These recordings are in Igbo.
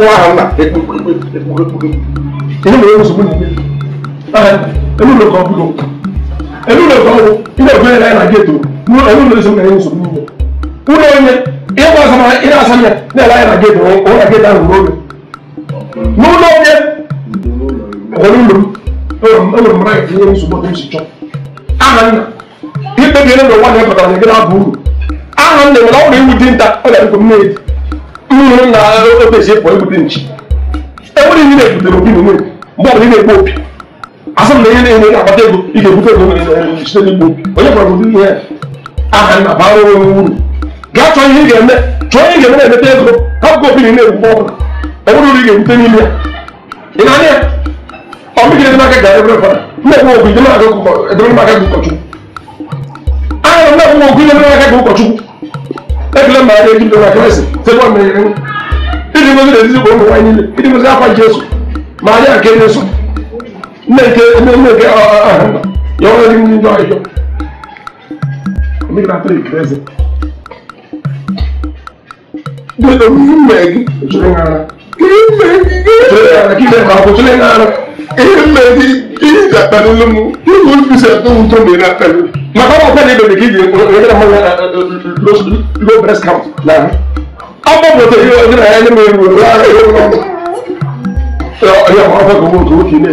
wọn ara ńlá inú mi yóò sọgbọn nígbè ẹnu ló kàn búlọ ẹnu ló kàn wọ ilé ìgbẹ́ yẹn náà gé tó ẹnu ló sọgbọn yóò sọgbọn nígbè wúlò yẹn ilé ìgbà sọmọ ilé àsọyẹ ní ẹ̀rọ yẹn náà gé tó wọn náà gé tó àwọn olóògbé wúlò yẹn ọ̀hún ló ẹnu mìíràn yẹn yóò sọgbọn tó ń sìtọ́ ara ńlá ipe bi yẹn ló wà ní ẹ̀kọ́tà yẹn gé náà bú ahàn lè wọ́n láwọn èèwù dín ta ọ̀là ẹ̀kọ́ mẹ́ẹ̀dì obviously for everything cheap. Everything you need to be money. More than you need asọmpi na ihe na-enye akpata ego ị ga-ebute ego site n'igbo onye gwara ụdị ihe aha na bara onwe uru gaa chọọ ihe ị ga-eme chọọ ihe ị ga-eme na-emete ego hapụkwa obi na na-egwu ọbụla ọ bụrụ uru ị ga-ebute n'ime ya ị na-anya ya ọmịgide n'aka gara ebe fara mmekwa ogu ide n'aka edere n'aka gị ụkọchukwu ahụ mmekwa ogu ide n'aka gị ụkọchukwu ekele mma ya na-eji ndo na klaasị tekwa mmiri Idi mo sile sisi gbogbo wáyé nílé. Idi mo sile afa Jésù. Màríà kéde sùn. Nneke nneke yọ̀wọ́ ẹni ní ìjọ ìjọ. Omi náà pèrè kìrẹ́sì. Gbèdé mi mẹ́gì ìṣòro ń ara. Kìrì mẹ́gì ìṣòro ń ara. Kìrì mẹ́gì ìṣòro ń ara. Kìrì mẹ́gì ìjà pẹ̀lú lómú. Kìrì wọ́n fi ṣe tó ń tó mi náà pẹ̀lú ọmọ bòtò yìí wọ́n jìnnà ẹni mi wò lára ẹ̀rọ ọmọ ẹ̀yọ ọmọ ọmọ gbogbo tó kì í lè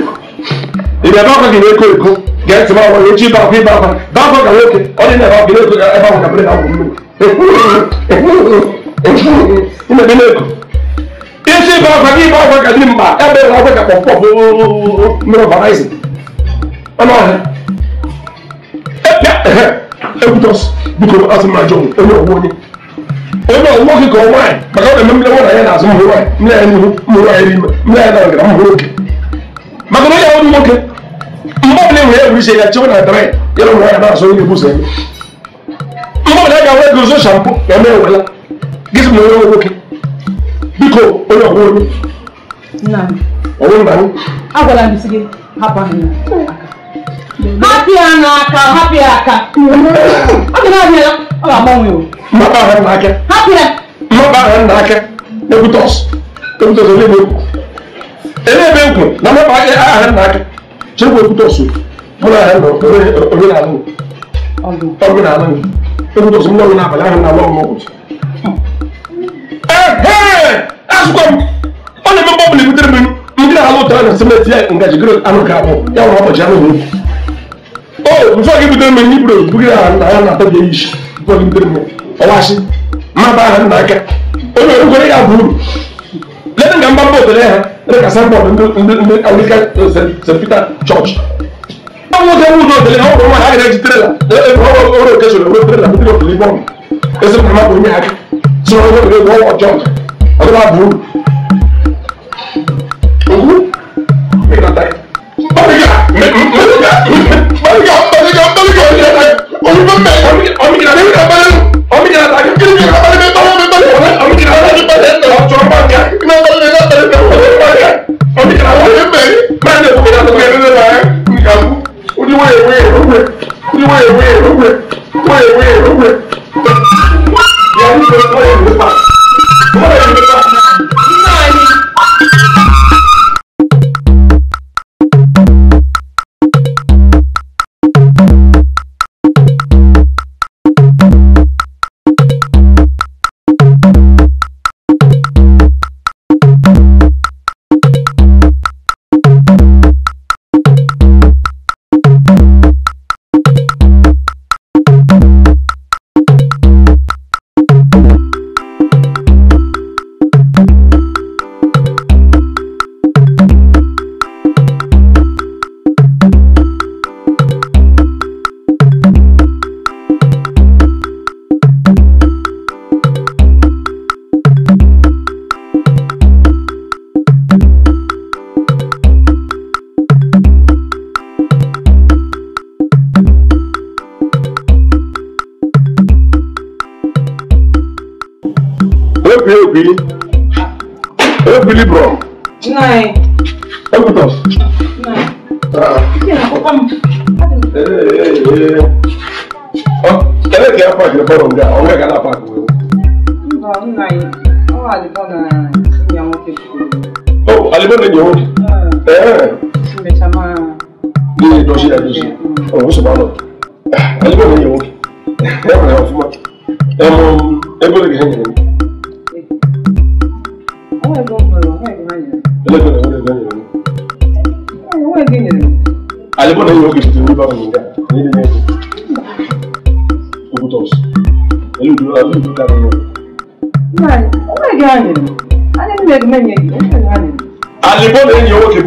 ìdè bá kọ́ kì í lè kó èkó gẹ̀ẹ́tì bá wọ̀ èjì bá fi bá fa bá kọ́ kà lókè ọdún náà bá kì í lè kó ẹ bá wọ̀ kà bẹ́ẹ̀ náà wọ̀ mí lè kó isi bá fa kí bá fa kà ní mbà ẹ bẹ́ẹ̀ náà fẹ́ kà pọ̀ pọ̀ mìíràn bàrà ẹ̀sìn ọmọ ọ̀hẹ́ ẹ pẹ́ ẹ̀hẹ́ ẹ ebe nwoke ka nwaanyị maka ọ na-eme mmiri nwa na ya na-azụ mmiri nwaanyị mmiri ya n'ihu mmiri ya n'ime mmiri ya na-aga mmiri oke maka na ya nwoke mgbe ọbụla enwere egwu ise ya chewe na dara ya na-azụ onye ya mgbe ọbụla ga ya mee ewela nwoke biko onye ọgwụ onye ọgwụ na anyị agwala m si gị hapụ ahụ hapịa n'aka hapịa aka ọ dị naanị ya ọ ga-agbanwe o mapa ahụ n'aka hapịa mapa ahụ ebe ekwu na mapa ahụ n'aka chekwa ekwutọs mụ na ahụ oge na-alụ ọgụ na-alụ ekwutọs ndị ọgụ n'abalị na-alụ ọgụ n'ụbọchị ehe asụkwa m ọ na-eme mgbe ebutere m ndị na-alụ ụtara na simeti ya ngaji gịrị anụ ga-abụ ya nwere ụbọchị anụ n'ukwu oh before you bidoro m hibru bugide ha nna ya na-atọ bịa ishi before you bidoro m ọwashi mmaba ha nna aka onye orukwere ya bụ uru lebe nga mbamba otere ha ndị ka sambọd ndị anglican st peter church ọ bụ oge ụzọ otere ha ụrụ nwa ha gara ejitere la ọrụ okesoro ewere tere na bidoro otere ibọm ezi mma bụ onye aka soro onye otere bụ ọwa ọjọọ ọdịba bụ uru okwu ịkọta ọ bụ ya Wait, wait, wait, wait,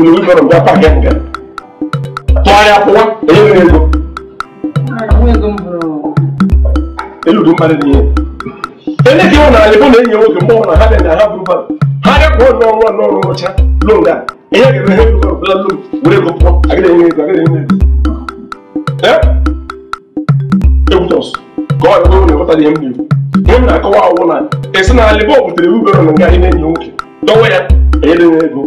ebulu wibọrọ bịa paka nga tụgharịa kwụwa onye nwere ego eludu mmadụ dị ihe ene dị ịhụ na alịbụ na enyi nwoke mgbe na ha bụrụ bara ọrụ ọrụ ọrụ ọcha lon ihe ga-eme ha ebulu bụla lon enye ego na na-ekwu ihe m na-akọwa awụ na esi na alịbụ na ya ego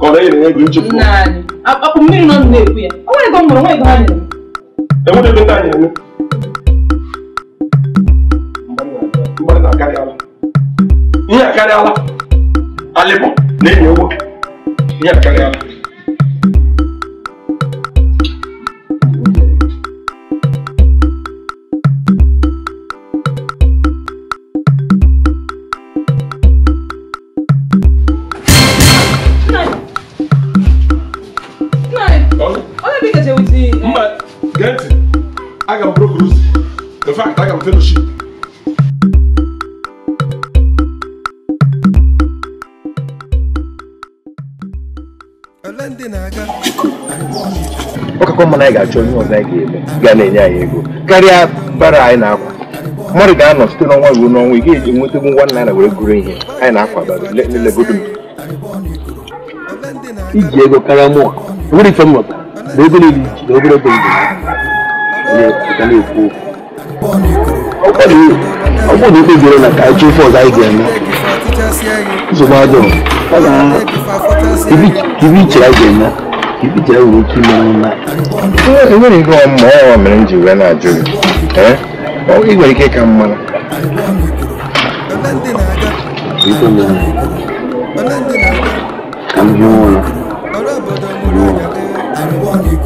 ọrịa na ego nchekwa naanị akpakpọ mmiri nọ na-ekwu ya o nwere ego m nwere ego ha nyere enwere ego taa nyere mgbanị na-akarịala ihe akarịala alịbọ na-enye ụgwọ ihe akarịala Program Fellowship. ọkakọ mmanụ anyị ga-achọ onye ọzọ anyị ga-eme ga na-enye anyị ego karịa bara anyị na-akwa mmadụ ga-anọ site n'ọnwa ruo n'ọnwa ị ga-eji nwetagbu nwa nna ya were gụrụ ihe anyị na-akwa lelegodo iji ego karịa mụ nwere ife m nwetara na ego niile iji na obere ego m ga-ekwu okwu ọkọ mi ọkọ mi pé ìbéèrè náà káàkiri fún ọ̀gá ìgbẹ́ mi ṣe bá jọ ọ̀gá ibi ìtìlá ìgbẹ́ mi ibi ìtìlá ìwé kí ló ń la. enwere ihe ọmụ ọrụ mere m ji wee na-ajụ gị ị nwere ike ka mma ka m hie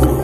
ụra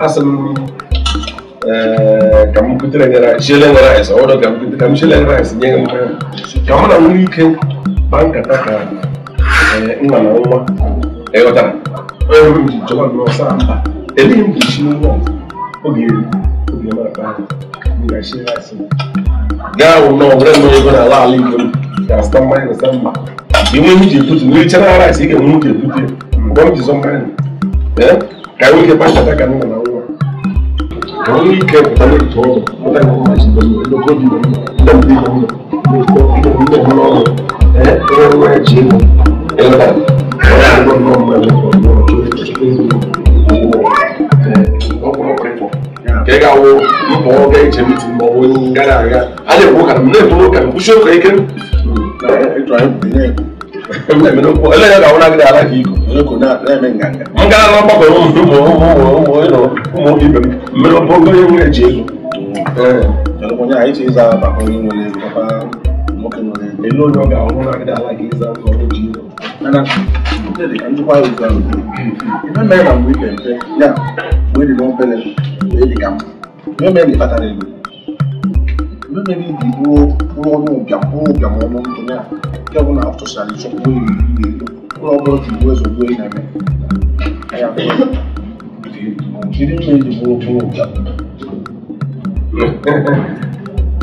asalin kam kutire ngara shele ngara esa odo kam kutire kam shele ngara esa nyenga mwe kam na ngui ke banka taka eh ngana ngwa eh otara eh mjomba ngwa samba eléyìí kì í ṣe owó obìnrin obìnrin máa bá nígbà ṣe láti. gáàwó náà ọ̀rẹ́ mi yóò gbọ́dọ̀ aláàlú ìgbẹ́ yàtọ̀ mọ́ ẹ̀rọ sẹ́mbà ìwé mi jẹ tutu ní ìṣẹ́ náírà sí ìkẹ́ mú jẹ tutu bọ́ mi jẹ sọ mọ́ ẹ̀ kàwé kẹ pàṣẹ àtàkà ní ìwọ̀n àwọn àwọn ní ìkẹ́ ọ̀tá ní ìtọ́ ọ̀rọ̀ ọ̀tá ìwọ̀n máa ṣe pẹ̀lú ẹ̀dọ́kọ́ bí ọ̀dọ́mọdé ìwọ̀n náà ẹ̀ẹ́dọ́gbọ̀n náà kai hmm. ga wo mu ko ga ce mutum ba wani gara ga ale ko kan ne to kan ku sho kai kan to ai na na men ganga mun ga ran ba ko mu mu mu mu no mu bi be me ko ga mocking on them. They no longer are one like that, like Islam or Judah. And I'm look at the anti-white Islam. Even men are weak and fair. Yeah, when they don't pay them, they come. No men are better than you. No men are the poor, poor, no, poor, poor, poor, no, no, no. They want to have to sell it. So we, we, poor, poor, the boys are going like that. I have. She didn't mean the poor, poor, poor.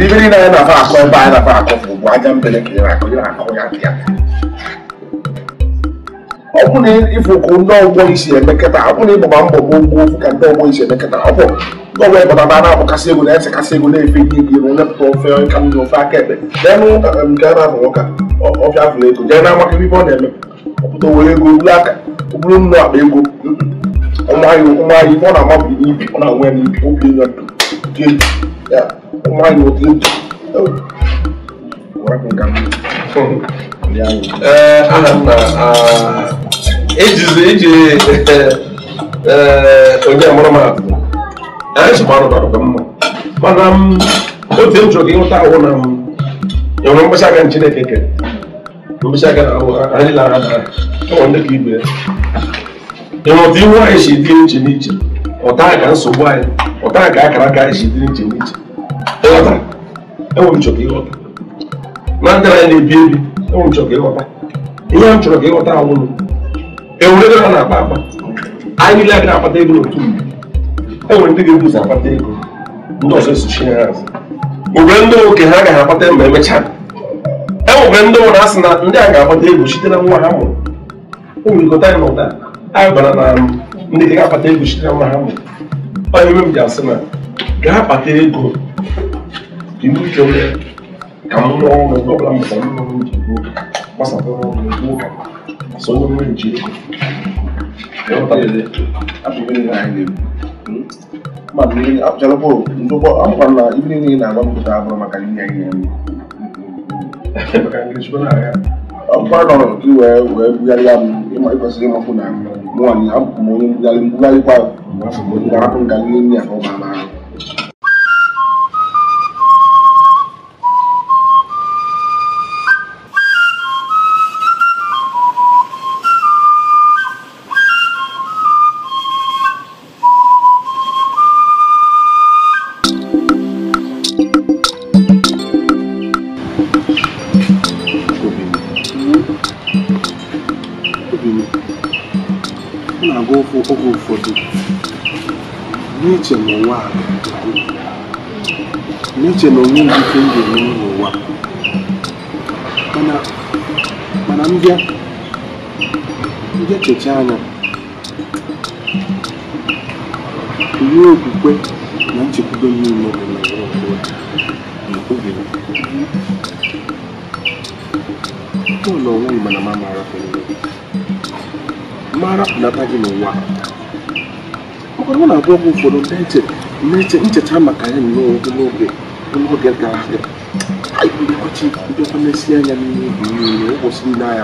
n'ibiri na na-akọ akọ ebe anyị na-akọ akọ bụ aja mbele ka ịra na-akọ ị akọ ya dị ya ọ na ịfụ ka ndị isi emekọta ọ na ịbụba mbọ bụ gboo ofu ka ndị ọgbọ isi emekọta ọ bụ ndị ọgbọ na na-abụkasị egwu na kasị ego na-efe ihe ike iru nepụta ofe ka ndị ofe aka ebe jee nke a na ọfịa ego jee na amaka ibe ọ na-eme ọpụta owere ego aka ego ọ na-amabụ n'ibi ọ na why not you? What happened, Gambo? Yeah. Uh, Anapa, uh, ages, ages, uh, onye amụrụ m abụ. Anyị sị mmadụ bara mma. Mana m, otu m chọrọ ka ịhụta ahụ na m, enwere mkpesa aka Chineke kere. Mkpesa aka na ahụ, anyị lara na ọ ndị ka ibe ya. Ịnụ otu ihu anyị si dị iche n'iche, ọta ka nsogbu o ọta ka akara aka anyị si dị iche n'iche. Ịghọta, enwe m chọrọ ịghọta na ndị anyị na-ebi ebi enwe m chọrọ ka ịghọta ihe m chọrọ ka ịghọta awụlụ enwere ego ha na-akpa akpa anyị niile agaghị akpata ego n'otu mgbe enwere ndị ga-ebuzi akpata ego ndị ọzọ esochie ha azụ nwere ndị oke ha agaghị akpata ego ma emechaa enwere ndị nwere asị na ndị a ga-akpata ego site na nwa ha mụrụ ụmụrịkọta anyị n'ụda anyị bara na ndị ga-akpata ego site na nwa ha mụrụ onye ime m ji asị na gaa kpata ego ka ibu ike wee ka m rụọ ọrụ mgbe ọbụla mụta mma m ji gbuo gbasapụrụ ọrụ ugbo so onye mmiri nji ego ịghọtalele abụghị nna anyị na-ebu mmadụ niile apụchara bụl ndụkọ akwụkwọ na ibe niile na-agba mpụta abụrụ maka ihe anyị na-eme maka ndị chukwu na wee wee bugharịa m ịma ịkwesịrị ịmapụ na nwaanyị abụkwa m onye mbugharị mbugharịkwa m ka ọ ma na ahụ iche na onwe m ike m ga-eme mana mbịa ndị anya ihe okwukwe na nchekwube niile bụ na obi bọọlụ onwe m mana ma mara mara pụnata gị n'ụwa ọ na abụọ gị ụfọdụ ncheta maka ya n'oge oge anya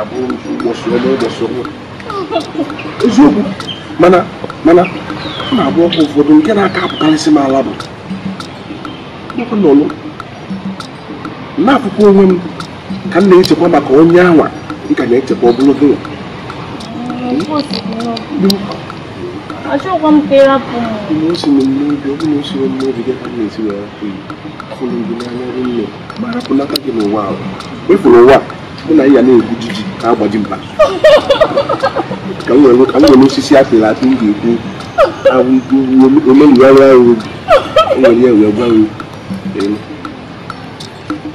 bụ eziokwu mana mana na-abụ ọkụ ụfọdụ nke na-aka apụkarịsị m ala bụ na n'akụkụ onwe m ka m na-echekwa maka onye anwa ka na-echekwa ogologo ya achọkwa m ka ịrapụ m n'osi m n'obi ọ bụ na osi m n'obi gị ka m akụ n'aka gị n'ụwa ahụ efuru ụwa mụ na ya na-egbu jiji ka agbaji mba ka m nwere osisi apịrị apị m ga-ekwu omenuarụ ahụ o nwere ya wee gwa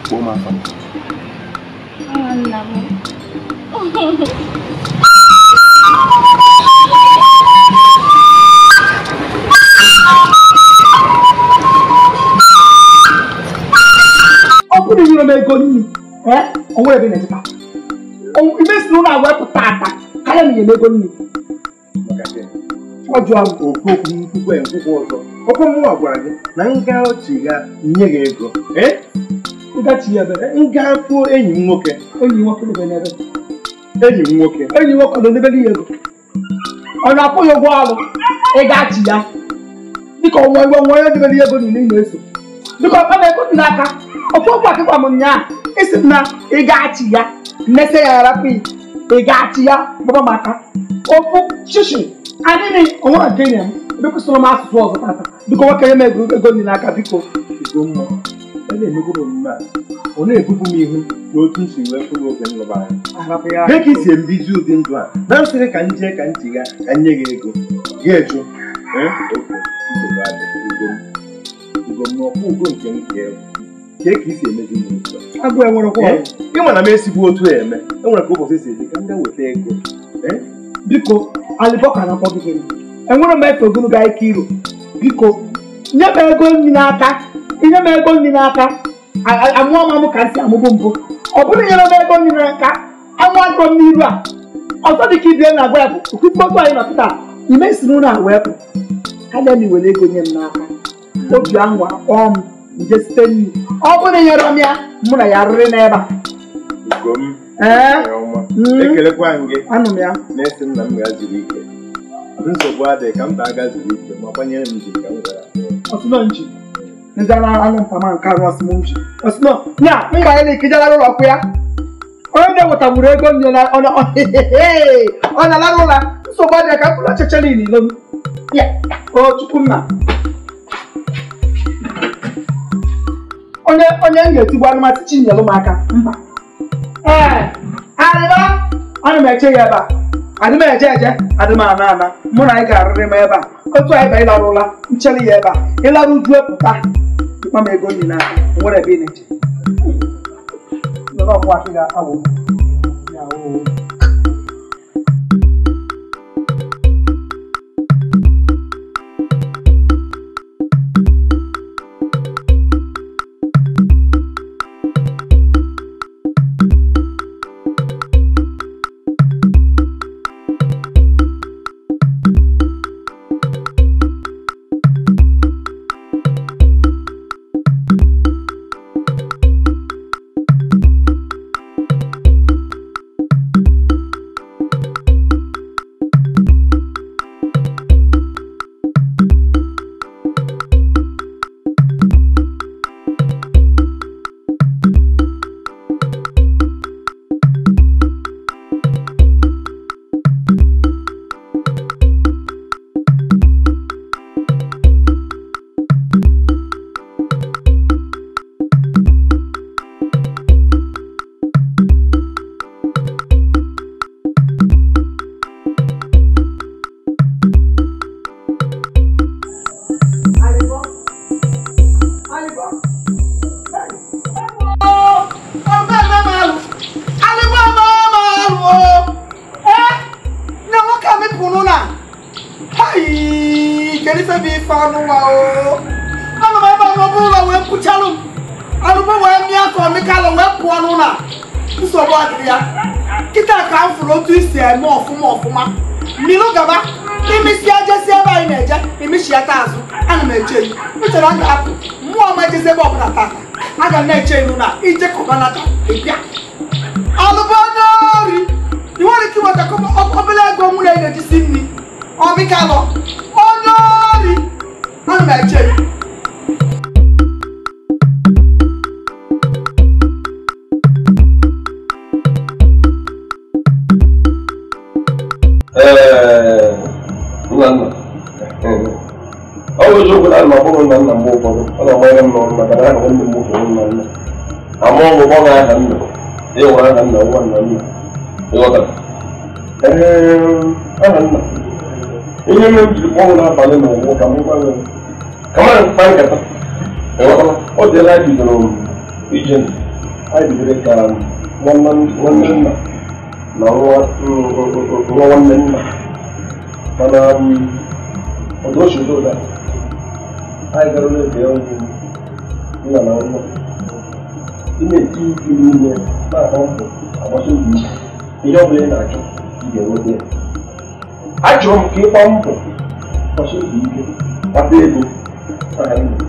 kpọọ m afa Thank you. Ndị nyere m ego nri, onwe ebe na-ezụta. Ime si n'ụlọ agwa pụta ata karịa m nyere ego nri. Ọ jụọ m okwu okwu nkwukwe nkwukwe ọzọ. Okwu m gwara gị na nga ochie ga nye gị ego. Nga kwuo enyi m nwoke. Enyi nwoke n'ebe n'ebe. Enyi m nwoke. Enyi nwoke nọ n'ebe dị ego. Ọ na-akwụ ụgwọ ọrụ ịgachi ya. Dịka ọnwa iwe nwa ya dịbe dị ego niile ị na-eso. Dịka ọ na-ekwu n'aka. Okonkwo Akịkwam nnyaa isi na ị ga-achị ya mmesị ya arapụ ị ga ya gbaba maka ofu shishi adịghị onwe nke enye m biko m asụsụ ọzọ tata biko nwoke nye m ego ego n'aka biko igbo mmụọ ị e na-emegoro omume a ọ na-ebubu m ihu n'otu nsi wee fụrụ oge m lụbara ka isi mbizi ụdị ndụ a na nsịrị ka nje ka ntị ga ka nye gị ego gị eju ugo m ọkwa ugo nke m ga-ewu ka ị si emezi agụ enwerekwa eh? ịma na m esigbu otu a e eme enwere ka ụbọchị si eme ka m ga weta ego eh? biko alibọka na akpọgidere enwere m efe ogologo ike iro biko nye m ego nri n'aka inye m ego nri n'aka amụọ m amụ ka m si amụbụ mbụ ọ bụrụ nyere m ego nri n'aka anwụgo m n'iru a ọzọ ka ibie na agwa ya bụ okukpotu anyị na pụta imesiri ụlọ a wee pụ ka na m iwere ego nye m n'aka obi anwa kpọọ m nje site ọ bụrụ na ịnyere ya mụ na ya rịrị n'ebe a anụ m ya na-esi nna m ya ike nsogbu adịghị ka mba ike ma gbanyere m ji ka m gara ọsụnọnji ndị ara nke anụ ya na ikijara ụlọ ya ya onye na-ewetagburu ego m ọ na-alara ụra nsogbu adịghị ka mkpụrụ ọchịcha niile m ya o chukwu nna onye onye m ga-etigbu anụmatụ chinyere ụmụaka mba ee arịba ana m eche ya ebe a adị m eje eje adị m ana ana mụ na anyị ga-arịrị m ebe a otu anyị ba ịlarụ ụla nchere ya ebe a ịlarụ uju pụta mkpa m ego nyi na nwere ebe ị na-eche ba za ka wannan musu wannan nan amma mu ba ga hannu eh wa hannu wannan nan eh wa kan eh hannu in yi mun ji ko na ba ne mu ka mu ba kamar ban ka ta eh wa o de la ji no ijin ai bi re ka wannan wannan nan na ruwa ruwa wannan nan kana ọdọ ṣòro dà áì gbẹrù lè bẹ ọ ní ọ̀nà ọ̀nà ilé tí ìlú yẹ máa bá ń bọ̀ àwọn sóògùn yìí ìjọba yẹn náà jọ ìyẹ̀wò bẹ́ẹ̀ àjọ kí n pa ń bọ̀ àwọn sóògùn yìí jẹ́ wábẹ́ ego sáà ń bọ̀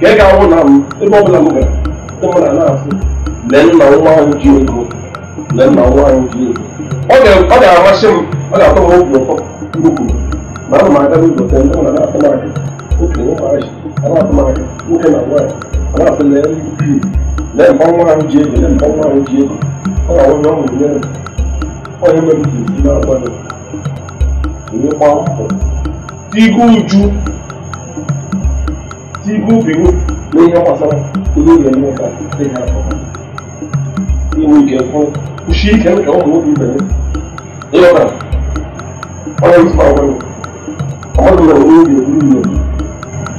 kẹ́kẹ́ àwọn náà mú ebe ọbụla m gara ụmụna na-asị lee nna nwa ahụ ji ego lee nna nwa ahụ ji ego ọ ga-amasị m ọ ga-atọ m obi ụtọ mgbe ma ana m aga n'ụzọ tee ndị mụna na-atọ m aka okenye ụmụazị Rahman woman and wife aláàfin lẹ́yìn bí lẹ́yìn bá wọn jẹ lẹ́yìn bá wọn jẹ wọn àwọn yóò mú lẹ́yìn wọn yóò mẹ́rin tì sí náà gbọ́dọ̀ ìwé pa ọ̀pọ̀ tí ikú ju tí ikú bìrù lẹ́yìn ọmọ sára olóògbé ẹni ọ̀gá lẹ́yìn àkọ́kọ́ ìwé ìkẹ́kọ̀ọ́ òṣì ìkẹ́kọ̀ọ́ ọ̀hún ló bí bẹ̀rẹ̀ ẹ̀yọ̀kan ọ̀rọ̀ ìfọ̀ àwọn ọmọdé rẹ̀ olóògbé ẹni ọ̀gá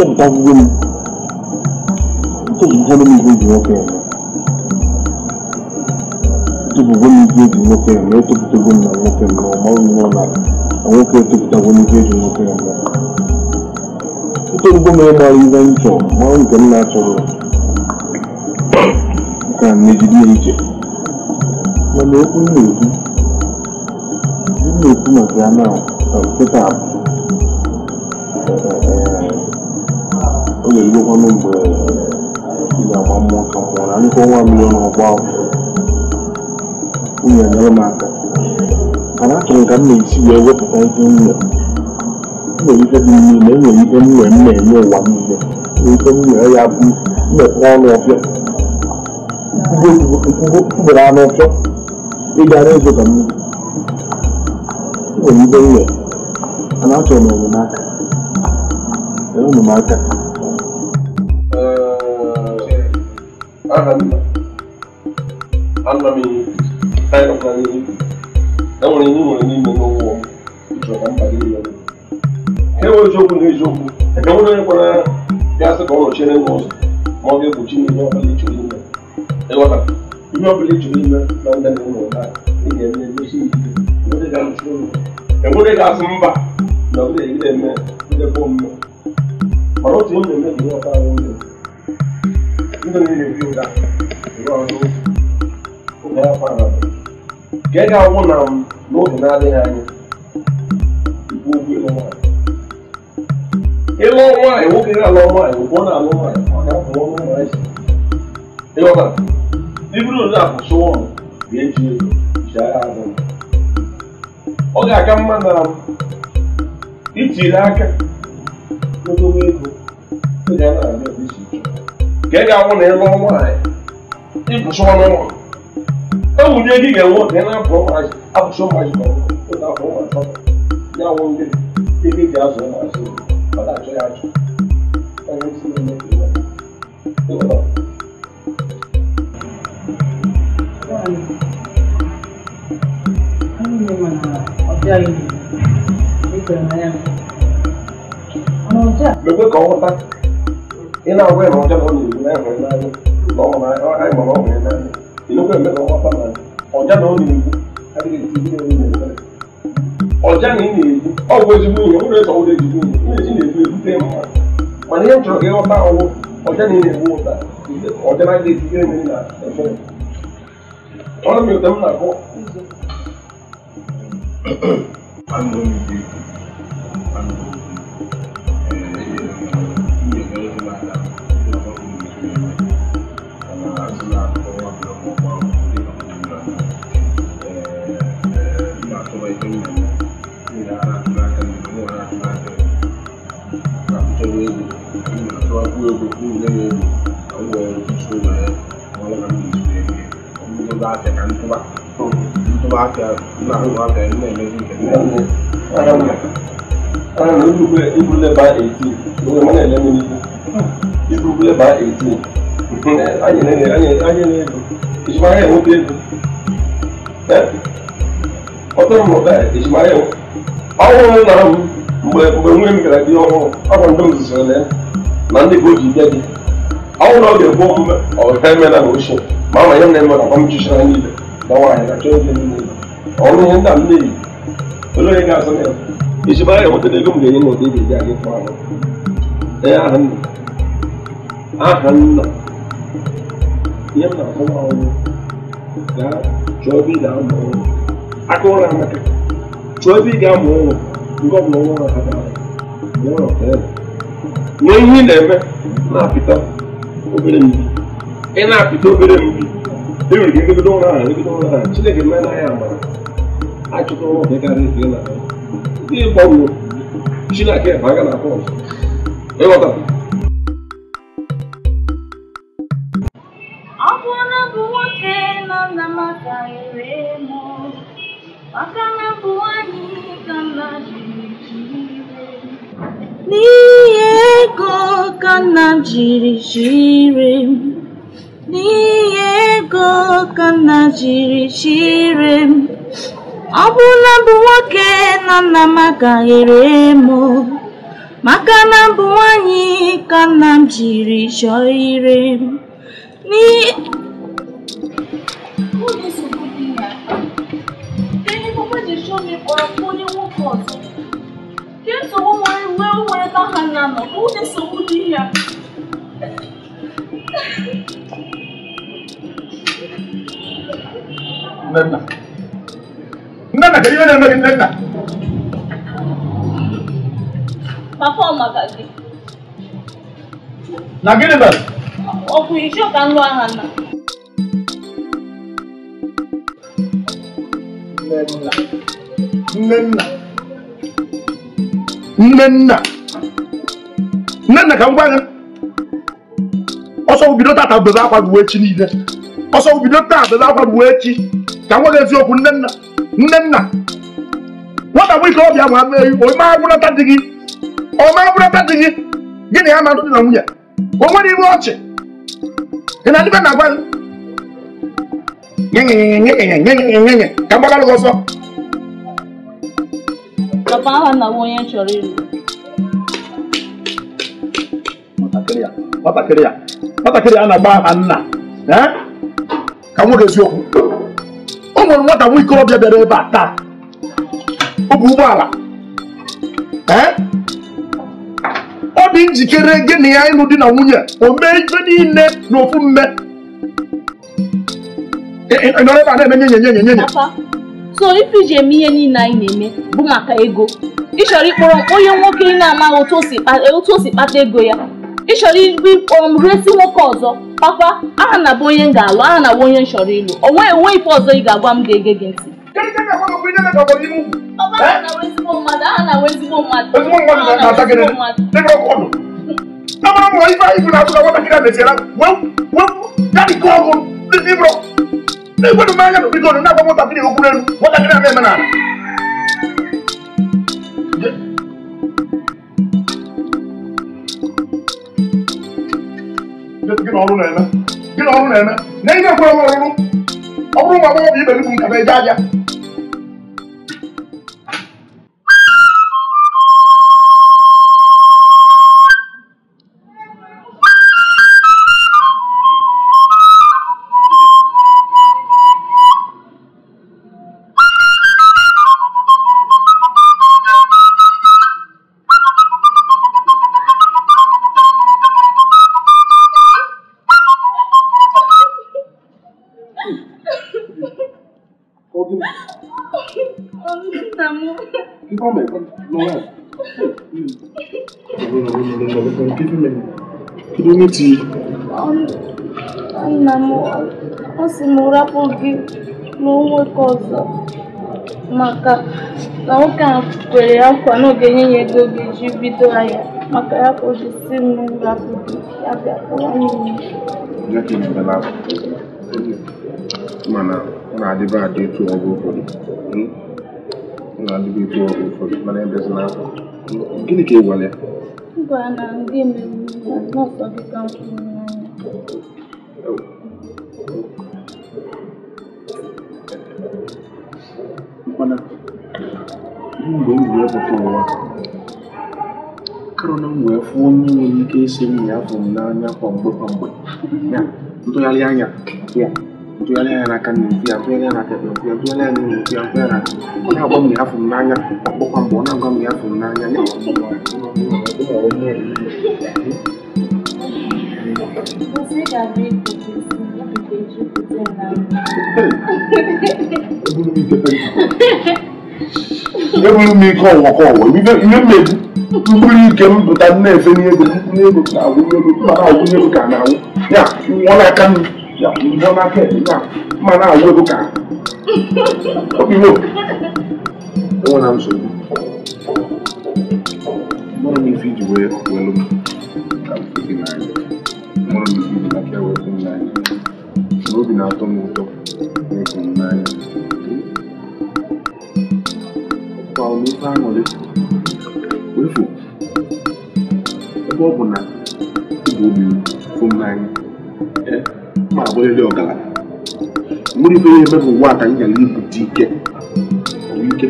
tó nǹkan gbogbo tó nǹkan ló ní ìgbéjì lọ́kẹ́ rẹ̀ tó gbogbo ní ìgbéjì lọ́kẹ́ rẹ̀ lọ́wọ́ tó fi tó gómìnà lọ́kẹ́ rẹ̀ lọ́wọ́ máa ń lọ́ la àwọn kẹ́ tó fi tó gbogbo ní ìgbéjì lọ́kẹ́ rẹ̀ lọ́wọ́ nítorí gómìnà máa rí bá ń jọ máa ń gbẹ̀mí náà tọrọ ga-erugokwanụ mgbe ga-agba mmụọ ka na ndịkwa ọnwa milion ọgba nwunye nyere m aka mana achọrọ ka m na-esi wee wepụta ihe m nwere nwere ike dị niile enwere ike m nwere m na-enye ụwa niile ike ya bụ mmekwa ọnụ ọfịa mkpụrụ anụ ọfịa ka mmiri nwere m mana achọrọ m enyemaka hannu annami tayo fani ẹwọn ni wọn ni mo lọ́wọ́ ìjọba ń balẹ̀ yẹn lọ. ga-anwụ na n'oge na-adịghị anya ịlụ nwaanyị nwoke ga-alụ nwaanyị ọ na-alụ nwaanyị ịghọta iburu na abụsụ ọnụ ga-eji ego ji agha azụ ọ ga-aka mma na itiri aka n'odobe ego ị ga-anwụ na ịlụ nwaanyị ịbụsụ wunye gị ga-enwe oge na abụ ụmụazị abụcha ụmụazị ma ọ na abụ ụmụazị ya nwe ndị ebe eji azụ ụmụazị ọ na-achọ ya achọ onye isi na-eme mekwe ka ọ ghọta ị na-agwa ya na ọjọọ na ọ na-ebu na-enwe n'anya na ọ nwere anyị ma ọ nwere ìlọ́pọ̀ ẹ̀mẹ́ lọ́wọ́ fáwọn ẹ̀ ọ̀já náà ní ìlú ẹ̀rí ìdílé ní ìlú rẹ̀ ọ̀já ní ìlú ọ̀gbọ́n ti mú ìyẹn wúlò ìtọ́wọ́ lè dìbò ní ìdí ìlú ìlú tẹ́ mọ́ mà ní ẹ̀jọ̀ kẹ́ ọ bá ọwọ́ ọ̀já ní ìlú ọ̀tà ọ̀já náà lè dìbò ní ìlú ẹ̀fọ́ ọ̀rọ̀ mi ò tẹ́mú nà kọ́. Thank you. people ne mu ɔmo wɔ nsusu na yɛ ɔmo lɛ ka mi nsu yɛ bi ɔmo ne ba afɛ ka ntoba ntoba afɛ na ho ba afɛ ne yɛ bi kɛtɛ ɛmu ɛmu ɛmu ibu bɛ ibu lɛ ba eighteen ɔmo na yɛ lɛ mi ni ibu lɛ ba eighteen anyi ne anyi anyi ne do ìsumayɛ ɛmu bi do ɛ ɔtɔ mu mgbe mgbe nwunye m gara di ọhụrụ ọ bụ ndị m zụzụrụ na ya. na ndị bụ ji nye gị ọnwụ na ọ ga-egbu omume ọha emela na ochie ma ama ihe m na-eme na ọmchichi na niile na nwaanyị na chọọ ihe niile ọrụ ihe nna m na-eyi olee onye ga-azụ na ya iji mara ya nwetara ego m ga-enye na ụdị ga-eji aga ịkpọ ahụ ee aha nna aha nna ihe m na-akpọ nwa ọrụ gaa chọọ ebe ị ga-amụ ọrụ aka ụra amaka chọọ ebe ị ga-amụ ọrụ nke ọ bụla nwa ha ga-amụ ọrụ ma ihe ị na-eme na-apịta obere mbi ị na-apịta obere mbi e nwere ike egodo ụra ahụ egodo ụra ahụ Chineke mee na ya amara achụta ụra ọbịa karịa ife na ndị gbanwe Chineke ebe aga na akwa ọzọ ịghọta ọ bụ nwoke nọ na maka ere mụ maka na bụ nwaanyị ka mma jiri jiri iwe ego ka nna jiri chire m n'ihe ego ka nna jiri chire m ọ bụrụ na mbụ nwoke na nna m agaghị ere maka na bụ nwanyị ka nna m jiri chọọ ire m n'ihi dị na ebe ihe mgbe ji chọọ m onye nwoke ọzọ nsogbu nwere wee nwere ebe ha na-anọ bụ ụdị nsogbu dị ya Nnenna Nnenna kedu ihe na-eme gị Nnenna Papa ọ maka gị Na gịnị mere Ọ bụ isi ka nwa ha na Nnenna Nnenna nnenna nnenna ka m gwa gị ọsọ bido tata bebe akwa ruo echi niile ọsọ bido taa bebe akwa ruo echi ka m nweghị eziokwu nnenna nnenna nwata bụ ike ọbịa ma mee ome agwụrata di gị ome agwụrata di gị gị na ya ma dị na nwunye o nwere iwe ọchị ị na-adịbe na agwa gị ka m gbagara gị ọsọ dọbaa na onye chọrọ ịlụ nwatakịrị ya nwatakịrị a na-agba aha nna eh? ka nwoke eziokwu o nwere nwata nwa ikorobịa bịara ebe a taa ọ bụ ụgbọala eh? ọ dị njikere gị na ya ịlụ di na nwunye o mee ife niile n'ofu mme nọrọ ebe a na-eme nyenye nyenye nyenye so ife iji eme ihe niile anyị na-eme bụ maka ego ịchọrọ ịkpọrọ onye nwoke ị na-amaghị otu o si kpata ego ya ịchọrọ ịkpọrọ m nwoke ọzọ papa aha na bụ onye m ga-alụ aha na bụ onye m chọrọ ịlụ onwe enwe ife ọzọ ị ga-agwa m ga-ege gị ntị Ife anyị bụ na-atụ na nwatakịrị a mesiara, wee wee ya dịka ọgụ n'ịbụrụ Kwani umeanza kupigana na kwa moto pili huku nenu. Wata kila mema nani? Gina ọrụ na-eme. Gina ọrụ na-eme. Na ị na-ekwe ọrụ ọrụ. Ọ bụrụ na ọ bụ ibe n'ibu nkata eje aja. Ọ sị m rapụ gị na onwe ka ọzọ maka na nwoke a kwere nkwa na ọ ga-enye ya ego ga-eji bido ahịa maka ya ka o ji si m rapụ gị ya bịa mana ọ na-adịbe adị etu ọgụ ụfọdụ hmm? ọ na-adịbe etu ọgụ ụfọdụ mana ebezi na hmm? gịnị ka ị gwara ya gwara na ndị na nọọsụ gị ka m kwuru n'anya oh. mana m mgbe m karena gue phone ya, ya, yang na m ya afọ n'anya ya ntụgharị ya ntụgharị anya n'aka nne ya ntụgharị anya n'aka ekpe ya ntụgharị anya n'ụlọ ya ntụgharị anya ọ na n'anya n'anya ya Você já ebulu m ike ọnwa ka ọnwa ihe mmegbu mkpụrụ ike m na-efe n'ego n'ego na agwụnye ego mana agwụnye ego ka na-agwụ ya nwụọ n'aka m ya nwụọ n'aka ya ma na-agwụ ego ka obi mo enwere m nsogbu mụrụ m ife iji wee welu m ka m fụ gị n'anya mụrụ m ife iji na ka wee fụ m n'anya n'obi na-atọ m ụtọ na-eso m n'anya kwa ofe aṅụrị efu ebe ọ bụ na ịbụ obi fụ m n'anya e, ma abụrịrị ọgaranya nwere ife ihe emebụ ụwa ka anyị gara ibute ike ike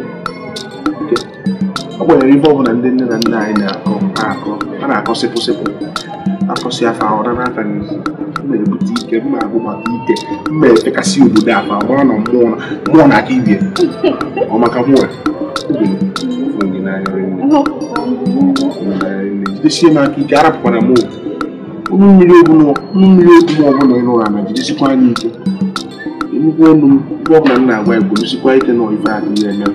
ọ gbanyere ife ọ bụla ndị nne na nna anyị na-akọ na-akọ a na-akọ sịpụ sịpụ akọsị afa ọra n'aka gị na-ebute ike mma agụ ike mma efekasị obodo afa gbara na mmụọ na aka ibie ọ maka mmụọ jidesie m aka ike arapụkwara m ụmụ mmiri ogbu mmiri ogbu ọbụla ịrụ ụra na jidesikwa anya ike nnukwu ọnụ m ife ọbụla m na-agwa ya kwudosikwa ike na ife adịghị eme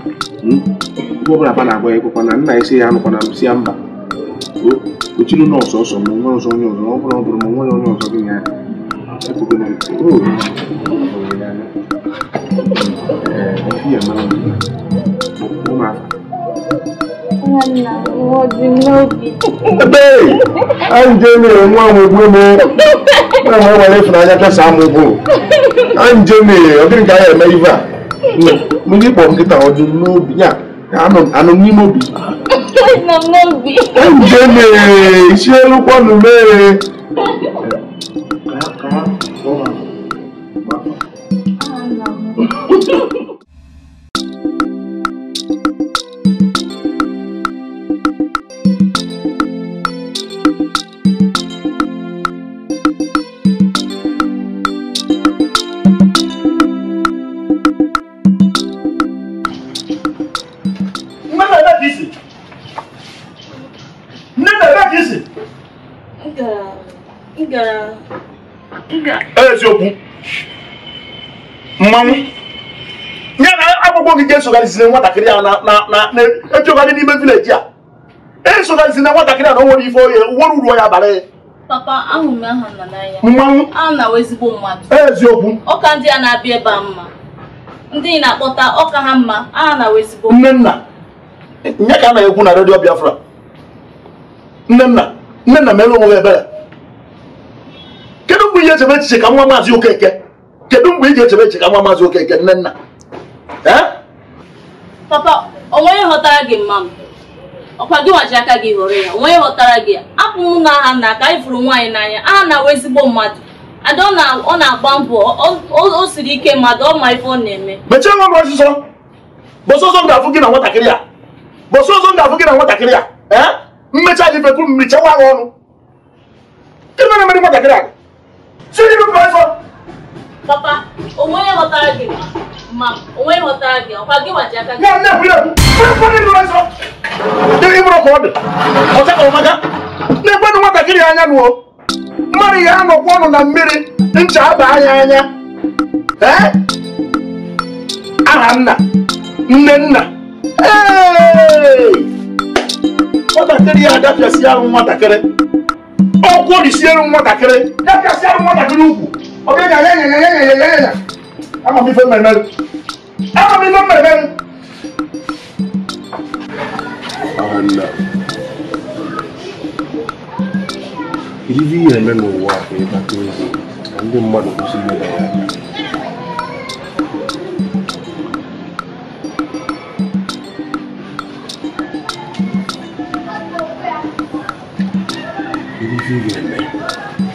ife ọbụla ba na-agwa ya na nna ya anụkwana m si ya mba uchiri na ọsọsọ ma onwe ọzọ onye ọzọ ọ bụrụ ọ bụrụ ma onwe ya onye ọzọ gị ya anyị je mere nwa amụgbu m nwa m nwere ịfụnanya kasa amụgbu anyị je mere ọ dịghị ka anyị eme ive a ndị kpọrọ nkịta ọ dị n'obi ya anụ n'ime obi Ndene iṣẹ́ ló pọ̀nù mẹ́rin. Kàákàá, wọ́n máa. esogharịzina nwatakịrị a na-ejegharị n'ime vileji a esogharịzina nwatakịrị a na o ife oye uru ya bara e. papa mmanwụ na ezigbo mmadụ eziokwu ọka ndị a na-abịa mma ndị na-akpọta ọka ha mma na ezigbo nye ka a na-ekwu na redio biafra nnenna nnenna mere ebere kedu mgbe ị echebe echiche ka nwa maazị okeke kedu mgbe ị echebe echiche ka nwa maazị okeke nne papa onwe onye ghọtara gị mma m ọkwa gị nwaji aka gị họrọ ya onwe onye ghọtara gị apụ m na aha na ka anyị fụrụ nwaanyị n'anya aha na-awụ ezigbo mmadụ ada ọ na-agba mbọ o siri ike mmadụ ọ ma ife ọ na-eme mechie nwa m ọsịsọ bọsọ ọzọ m ga-afụ gị na nwatakịrị a bọsọ ọzọ m ga-afụ gị na nwatakịrị a ee mmecha gị fekwu m mechawa ha ọnụ gịnị mere mere nwatakịrị a si gị papa onwe ghọtara gị onwe ọtara gị ọkwa gị gbaji aka gị na-ekwenụ nwatakịrị anya nụọ mmadụ ya a ọnụ na mmiri ncha aba anya anya aha nna nne nna nwatakịrị ya nwatakịrị ọkwụ nwatakịrị nwatakịrị ugwu ama mi fẹ́ mẹ̀mẹ́ ama mi fẹ́ mẹ̀mẹ́. ala ilé yẹn mẹ́nu wà fún yín kátó yìí ndị mmadụ kwụsịrị ịda ya aka ihe ị ga-eme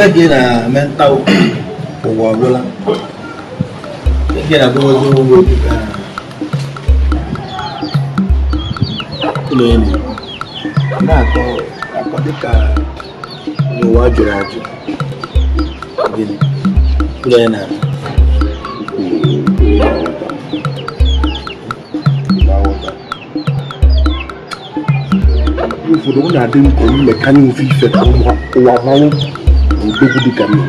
mgbe gị na mental ụwa ọbụla gị na abụghị ụgwọ ụlọ enyi na-akọ akọ dịka n'ụwa jụrụ ajụ ụlọ enyi na ụfọdụ adị ụwa gbégúdé kan ní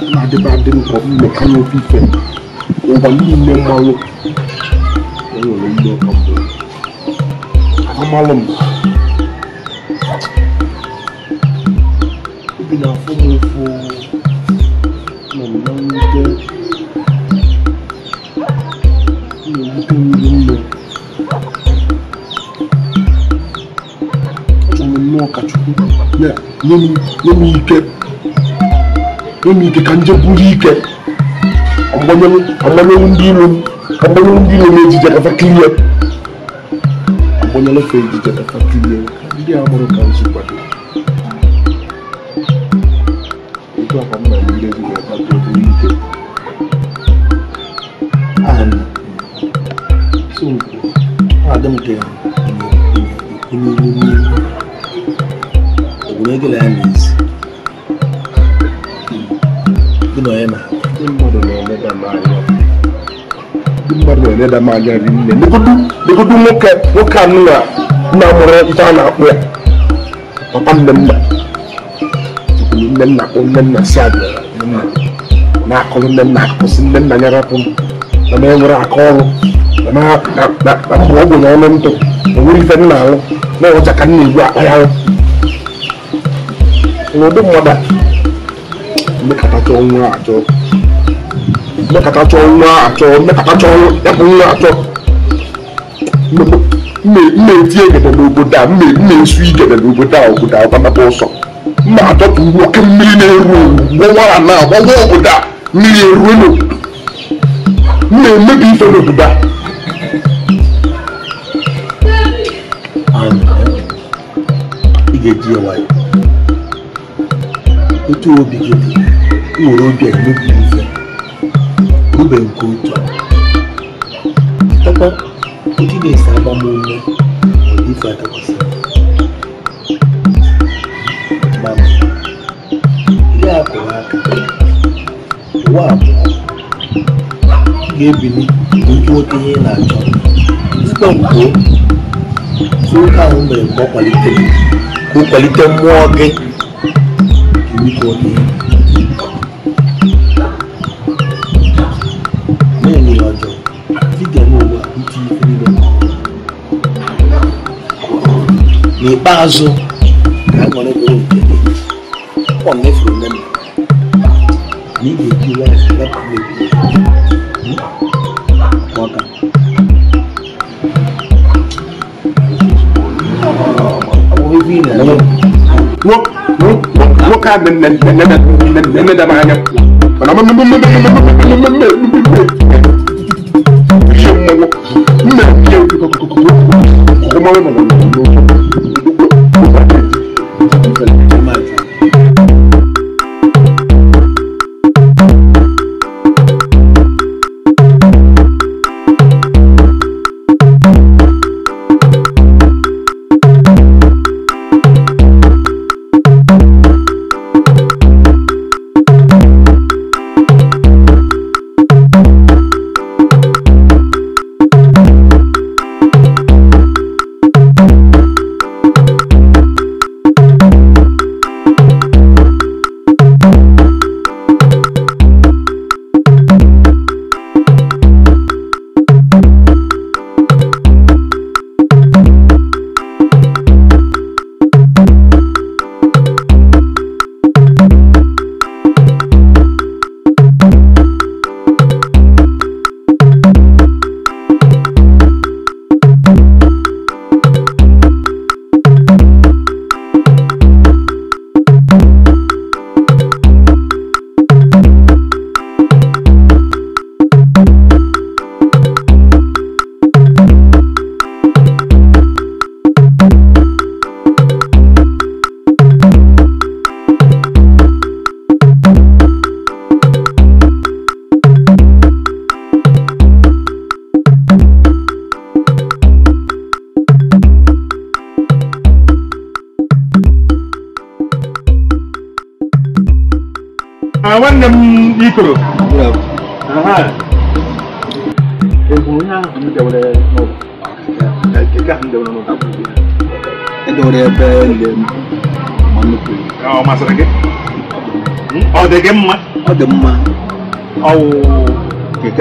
wọn adébádé nkọ mẹka ní obi fẹ wọn ní ilé mọ wọn wọn yọ lọ ilé ọkọ fún wọn amalọ mọ. nye ike ka nje buru ike agbanyewu ndị ilo m agbanyewu ndị ilo m ejije kafa kilie agbanyela ka ejije kafa ndị a mụrụ ka nzu kwado mmanya dị nne legodu nwoke nwoke anụ na nna mụrụ nta a na-akpụ ya papa nah nna tukwuru nne nna kpụ nne nna si abịa na-akụrụ nne nna akụsị nne nna ya rapụ na m enwere aka ọrụ na-akpụ mekatatsɔ ŋua atsɔ mekatatsɔ ɛfu ŋua atsɔ mme mme vie gɛdɛ le obo da mme mme sui gɛdɛ le obo da obo da ɔbana bɔ sɔ mme atɔ tu wo ke mmiri na eru wɔwɔ ana wɔwɔ obo da mmiri eru no mme mebi ife na obo da. ị ga-eji ya nwayọ otu obi gị nwere obi a emebi ube nke otu ọkwa ndị na-ese agbamume ife adakwasị mana ya akụrụ aka ụwa abụọ ga-ebili nke nwoke ihe na-achọ zụta mkpo nwoke ahụ mere ka ọ kwalite mmụọ gị nke nwoke n'ikpeazụ ka ha nọrọ ebe nke gị ọ mefuru nne m na ị ga-eji laif wepụ ebi maka nwoke a na-emeda m anya mana mmemme mmemme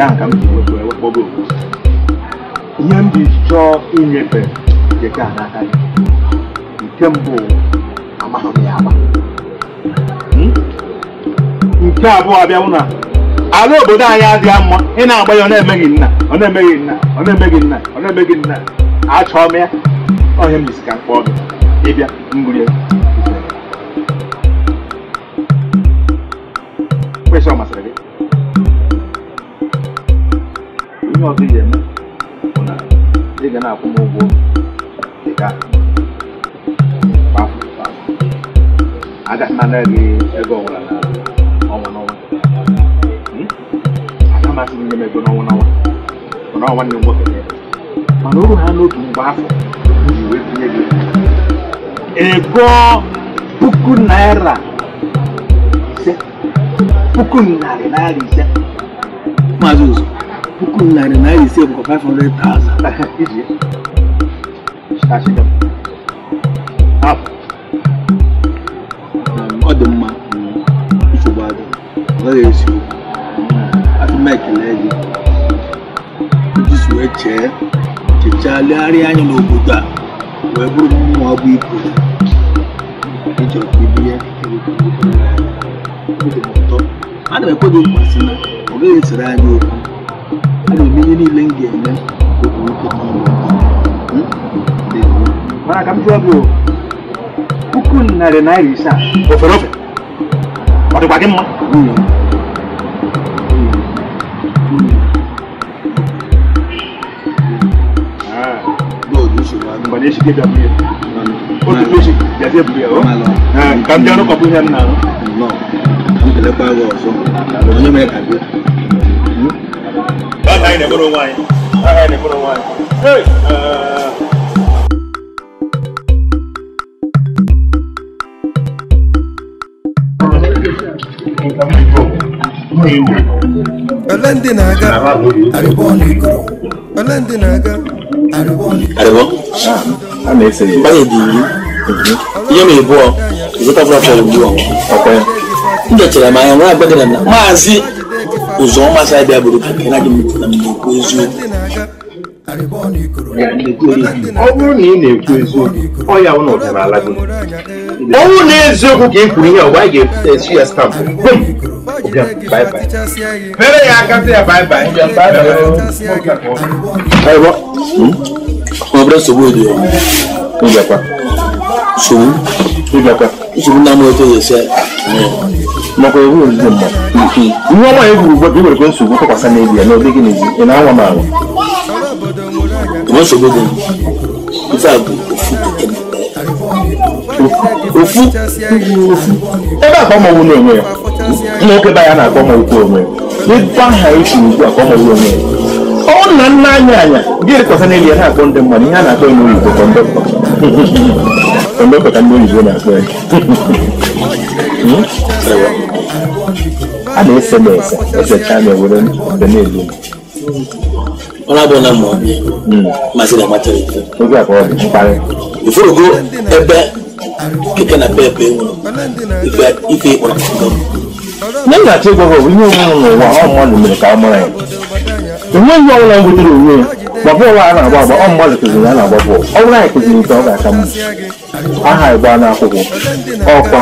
a ka m ji wepụ ihe m ji chọọ inyefe nke n'aka nke mbụ amaghị ya agba hmm? nke abụọ abịawụ na ala obodo anyị adịghị mma ị na-agba ya ọ na-emeghị nna ọ na-emeghị nna ọ na-emeghị nna ọ na-emeghị nna achọọ m ya ọhịa m gị ịbịa kwesịrị ọ masịrị ihe ọzọ ị ga-eme bụ na ị ga na-akwụ m ụgwọ dị ka agaghị gị ego ọbụla na ọnwa n'ọnwa aka hmm? masị m nye m ego n'ọnwa n'ọnwa bụ na nwanne m nwoke e mana oru ha n'otu mgbe afọ ji wee tinye gị ego puku naira ise puku narị naira ise maazị ụzọ puku narị naira ise bụ 500,000 iji ọ dị mma nsogbu adị ọ gaghị esi okwu adị m ekele gị iji wee chee chechaa legharịa anya n'obodo a wee bụrụ mmụọ bụ ibu ịchọrọ ka ibu ya ana m ekwedo mkpasị na ọ gaghị esere anyị okwu na omenye niile m ga-eme otu nwoke niile mana ka m jụọ gị puku narị naira ise a ofere ofe ọ dịkwa gị mma mgbe na-echi ga-abụ ya otu echi gazie bụ ya ka m bịa rụkọpụ ihe m na-arụ anyị na-egboro onwe ole ndị na-aga arịbọ ọnụ ole ndị na-aga arịbọ ọnụ ihe ma ịbụọ ịzụta ọkwa ya m dochara m anya nwa agbagara na maazị ụzọ ọma si abịa bụrụ ka nke na-adị m na m na-ekwu eziokwu ọ bụrụ na ị na-ekwu eziokwu ọ ya ụlọ ọdịnala gị ọ bụrụ na eziokwu ka ị kwuru ihe ọgba anyị ga-esi ya stampụ bum mere ya aka sị ya baibai ọ bụrụ nsogbu dị nsogbu nsogbu na-amaghị otu esi nakwa iwu ozuzo mma ihe ọma egwuru ugbu a iwerekwe nsogbu tụkwasị n'ebi ya na ọ n'ezi ị na-anwa m anwa dị a ofu ebe akpa ọmọnwụ na-enwe ya nwoke be ya na-akpọ ọmọnwụkwu onwe ya aha esi ugbu a ka ọmọnwụ ọ na nna anya ya na-akpọ ndị mmadụ ihe a na-akpọ ya n'oyibo ka ndị oyibo na-akpọ ya hmm? a na-ese m ese esechaa m ewere mbe na-egbu m ọrụ abụọ na mmụọ mazi na amata ike oge abụọ dị mkparị iforogo ebe keke na pepe nwụrụ ife ịkpọrọ nne na-achọ ịgwa gị ihe onwe m n'ụwa ọ mmadụ mere ka ọ mara ya enweghị ọbụla m butere onwe ya ma bọọlụ a na-agba agba ọ mmadụ kụziri a na-agba bọọlụ ọ bụrụ anyị kụziri nke ọ ga-aka mma aha ịgba n'akwụkwọ ọkwa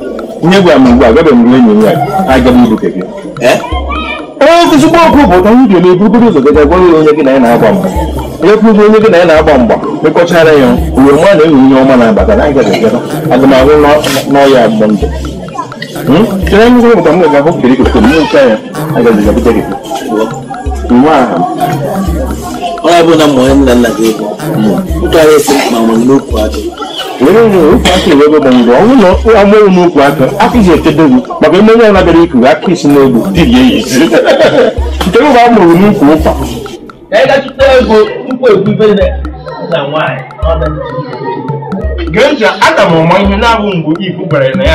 ihe gwa m ugbu a gaba m enyi m ya aga m ibuke gị ezigbo ọkụ bụ onye ga na-eburugoro ụzọ gaja gwara ya onye gị na ya na-agba mgba onye kwuru onye gị na ya na-agba mgba mekọchara ya uwe mụ na enwe onye ọma na-abata na aga n'ọya mgbe ndụ m hụ kiri kiri ya gabute gị nwa aha onye bụ na mmụọ ya ebe gbanwere ọnwụ na amụrụ n'ukwu aka akụzi echedo gị maka onye ya nabịara ikuru aka isi n'egbu dị ya eyisi nke m a mụrụ n'ukwu ụkwa aga m ihe na-abụ na ya na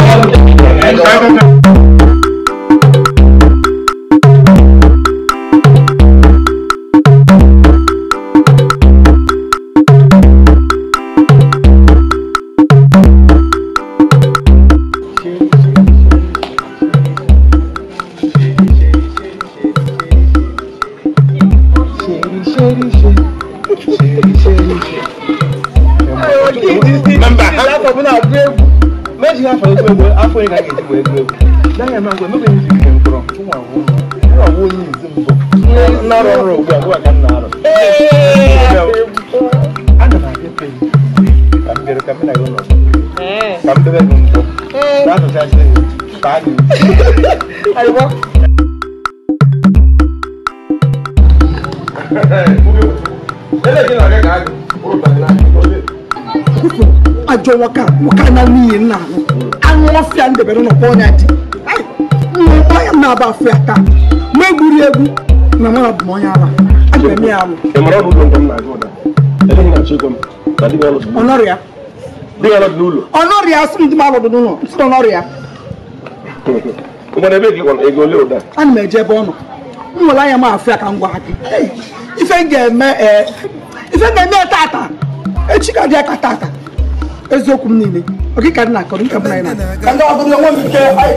ha ọnwa ya na ya da bari na kona ti ai mma ya na ba fi aka ma guri egwu na ma bu mo ya ala a ga mi alu e mara bu don na go da ele ni na che ko ta di galo onoria di galo dulu onoria sun di ma lo dulu sun onoria o ma na be ki kon e go le o da an me je bo no m nwere anya m afụ ya ka m gwa gị ife m ga-eme ife m ga-eme tata echi ka dị aka tata eziokwu m niile ọkịka dị na akọrọ nke bụ na anyị na ndị ọbụla nwe m ike anyị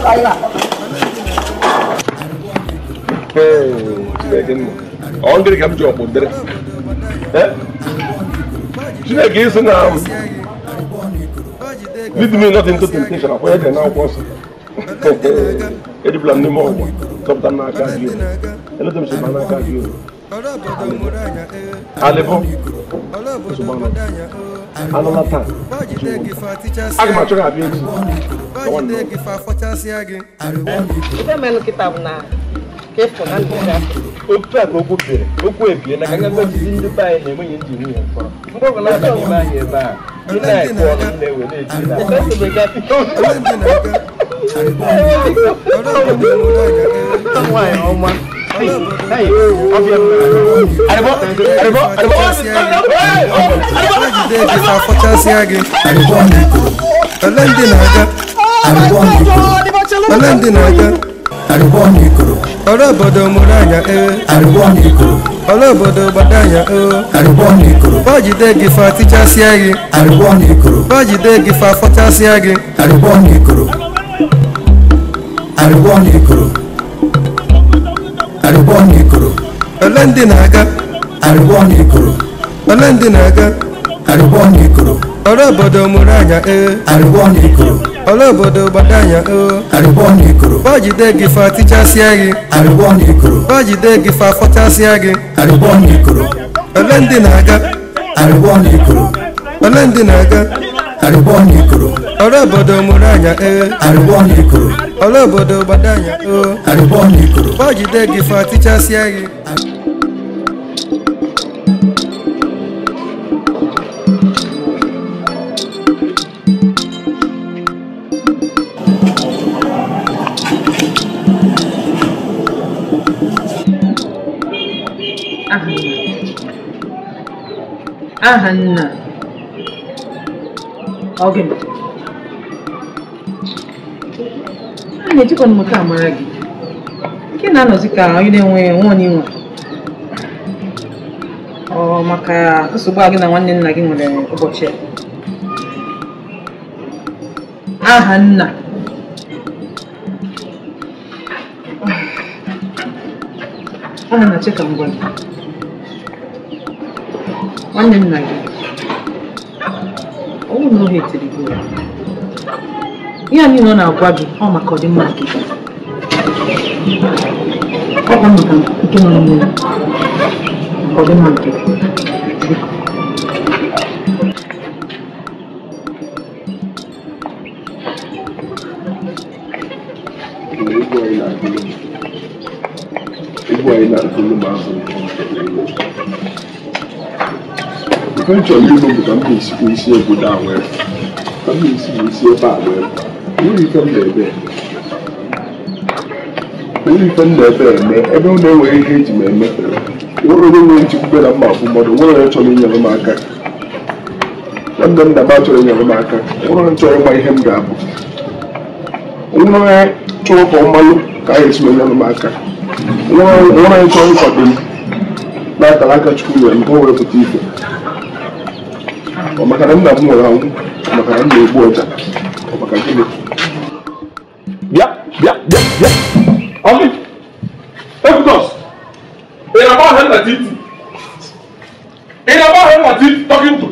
na ọ ndịrị ka m ji ọkpụ dịrị chineke isi na lead me not into temptation akwụkwọ ede na akwụkwọ nsọ edibula m n'ime ọgwa chọpụta n'aka gị eleta m si n'aka gị alịbụ nsogbu anọ another time aga m achọghị abịa echi otu a ka okwu bere okwu ebie na ka nga gozizi ndị be anyị na-enweghị ndị nwunye mkpọrọ mgbe ọbụla aba n'ime anyị ebe a ị na-ekwe ọrụ m na-ewe na-eji na nwaanyị ọma ọlọ́ndì nàga ọlọ́bọ̀dọ̀ mọ̀láyà ẹ̀ ọlọ́bọ̀dọ̀ bàdáyà ẹ̀ bájídé gífà tíjà sí ẹ̀yìn bájídé gífà fọ́tà sí ẹ̀yìn àríwọ̀ ní ìkòrò arịbọ na ikoro ole ndị na-aga arịbọ na ikoro ole ndị na-aga arịbọ na ikoro ole obodo mụrụ anya ee eh. arịbọ na ikoro ole obodo gbada anya oo eh. arịbọ na ikoro bọjide gị fa tichasịa gị arịbọ na gị fa fọchasịa gị arịbọ ole ndị na-aga arịbọ ole ndị na-aga arụbọn ikoro ọlọ́bọ̀dọ̀ muranya ee arụbọn ikoro ọlọ́bọ̀dọ̀ gbadanya oo arụbọn ikoro bọ́jide gị fa tichasịa gị Ahanna. Ahanna. Oge m. A na-ejikọ m a amara gị nke na-anọzi ka onye na-enwe nwa onye nwe ọ maka nsogbu a gị na nwanne nna gị nwere ụbọchị a aha nna aha na-achị ka nwanne nna gị I would know here till the go. Ihe anyị nọ na-agwa gị ọ maka ọdịmma nke gị. Ọ bụ maka nke nọ n'ime ọdịmma nke gị. anyị na-akụlụ ma abụghị ife ndị ime bụ ka m na-esikwa isi obodo a wee ka m na isi ebe a nwere m na-ebe nwere m na-ebe eme ebe ọ na ihe eji m eme onye nwere nchekwube na mma bụ mmadụ nwere onye chọrọ inyere m aka nwanne m na ba chọrọ inyere m aka nwere onye chọrọ ihe m ga-abụ nwere onye ka ọ malụ ka anyị esi m aka nwere onye chọrọ ịkwado m n'akara aka chukwu maka na nna m nwere anwụ maka na m na-egbu ọja maka gịnị bịa bịa bịa bịa ọmị ebudos ị na-agba ahịa nna titi ị na-agba ahịa nna titi tọkịntụ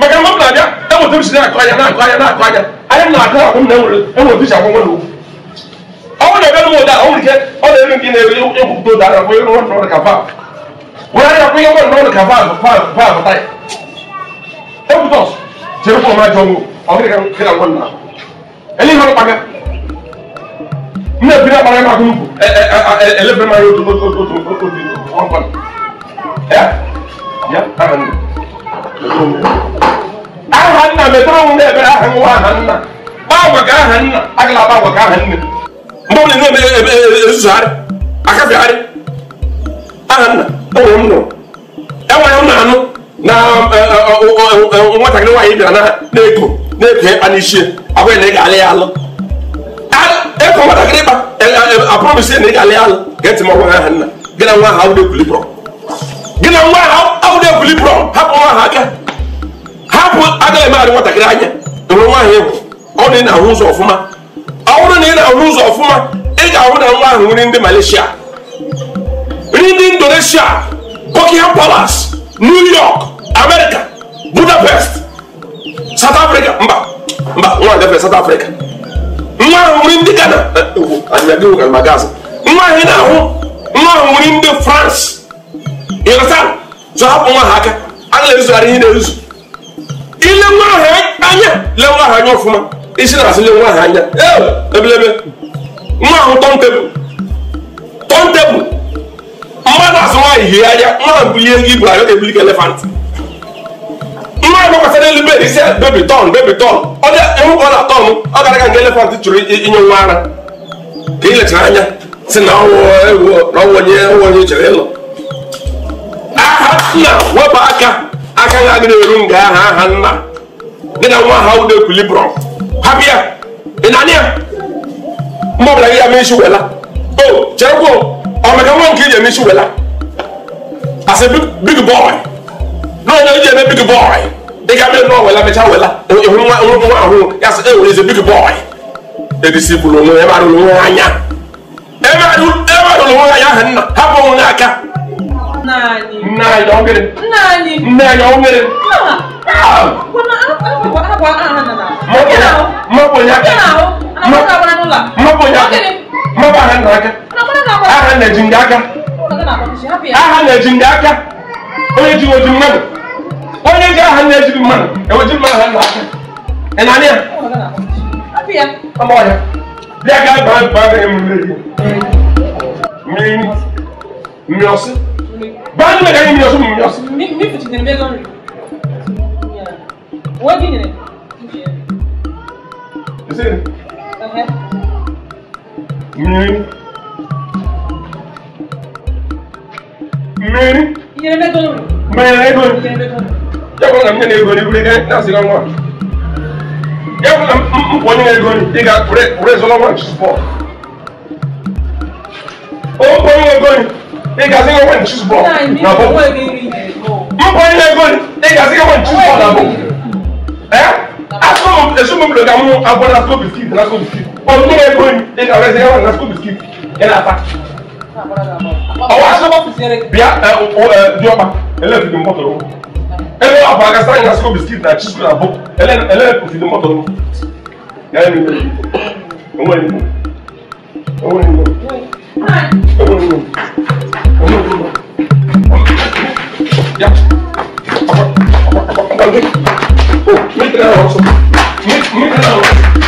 maka mgbe m na-abịa enweta m si na-akụ anya na-akụ anya na-akụ anya anya m na-akụ akwụ m na enwere enwere isi akwụ nwere ụkwụ ọnwụ na-ebe m ụda ọ nwere ọ na-ere gị na-ebe egwupụta ụda na-akwụ ihe nwa ka vaavụ were anya kwụ ihe nwa nọrọ ka vaavụ vaavụ vaavụ taya tos jere ko ma jongo o ke kan ke kan na eli no paga ne bi na paga ma ko nuko e e ele be ma yo to to to to to bi on ban ya ya aran ahan na me tro ne be ahan wa ahan na ba wa ga ahan na agla ba wa ga ahan ne mbo ne no me e su sare aka bi are ahan na o mo no e wa yo na no na eh, eh, eh, oh, oh, oh, nwatakịrị nwaanyị bịara na-eko na-eko ịkpa n'isi abụghị na ị ga-alị ya alụ eko nwatakịrị ịkpa aprọmisi na ị ga-alị ya alụ ga-eti m ọgwa aha nna gị na nwa ahụ ekwulibụrọ gị na nwa ahụ ekwulibụrọ hapụ nwa ahụ aka hapụ agaghị emegharị nwatakịrị anya enwere nwa ahụ ịhụ ọ na ị na-ahụ ụzọ ọfụma ọ bụrụ na ị na-ahụ ụzọ ọfụma ị ga-ahụ na nwa ahụ nri ndị Malaysia nri ndị Indonesia Buckingham Palace new york america budapest south africa mba mba nwa agafe south africa nwa ahụ nwere ndị ghana anyadịwo ka ma gaasị nwa ahụ na-ahụ nwa ahụ nwere ndị france ịghọta zụ hapụ nwa ha aka a na-ezugharị ihe na-ezu ile nwa ahụ anya le nwa ahụ anya ọfụma isi na-asị le nwa ahụ anya ebelebe nwa ahụ tọntebụl tọntebụl mmadụ azụ nwaanyị hie anya mmadụ bulie ego ibu arịọ ebulike elefant mmadụ gbakwasịra elu bed isi bebi tọn bebi tọn onye ịhụ ka ọ na-atọn ọ gara aga nke elefant chụrụ inye nwa ara ka ilechara anya si na ọwụ onye onye chere ịlọ aha nna wepụ aka aka na agịrị eru nga aha aha nna gị na nwa ha udo ekwilibrọm ha ya ị na-anị ya mma ọbụla gị ya mee isi wela o chere cherekwa ɔmɛkɛ wɔn kii yɛ nisi wɛla ase big boy n'ɔnyɛ yɛ bɛ big boy dika bɛ n'ɔ wɛla mɛ kya wɛla ehun wa ehun wa ahun yasa ewu yɛ sɛ big boy edisi bulu mu ɛma do lu anya ɛma do ɛma do lu anya hɛn na ha bɔ wɔn aka. naani naani ɔn kiri naani naani ɔn kiri. ko na an an bɔ an bɔ an nana. mɔ bonya mɔ bonya mɔ bonya mɔ bonya kuma ba hannu aka aha na jin aka aha na jin aka onye ji ojin mmadụ onye ji aha na ejiri mmadụ eweji mmadụ hannu aka ịnanịa ọmọ ya bịa ga baa baa ga emume gị mmiri mmiri ọsị baa ndị mega mmiri ọsị mmiri ọsị What do you need? Is Okay. Miri. Miri. Iye ne to. Miri ne to. Iye ne to. Yako na mnyene ego ni kule ne na sila mwa. Yako na mponi ego ni iga ure ure zola mwa chispo. O mponi ego ni iga sila mwa chispo. Na bo. Mponi ego ni iga sila mwa chispo na bo. Eh? Aso mo esu mo bloga mo abona ko biskit na ko biskit ọdún tó bẹ gbóyè ní ọ̀rẹ́ ṣe wọn na school biscuit yẹn náà fa. ọwọ́ aṣọ bíà ẹ ẹ diọba ẹlẹ́ẹ̀fì ni mọ́tò lọ́wọ́ ẹlẹ́ẹ̀ wà fún akásá yẹn na school biscuit na chisu na bó ẹlẹ́ẹ̀fì ni mọ́tò lọ́wọ́ yẹn ni ọwọ́ ni ọwọ́ ni ọwọ́ ni ọwọ́ ni. Ja. Aber, aber, aber, aber, aber, aber, aber, aber, aber, aber, aber,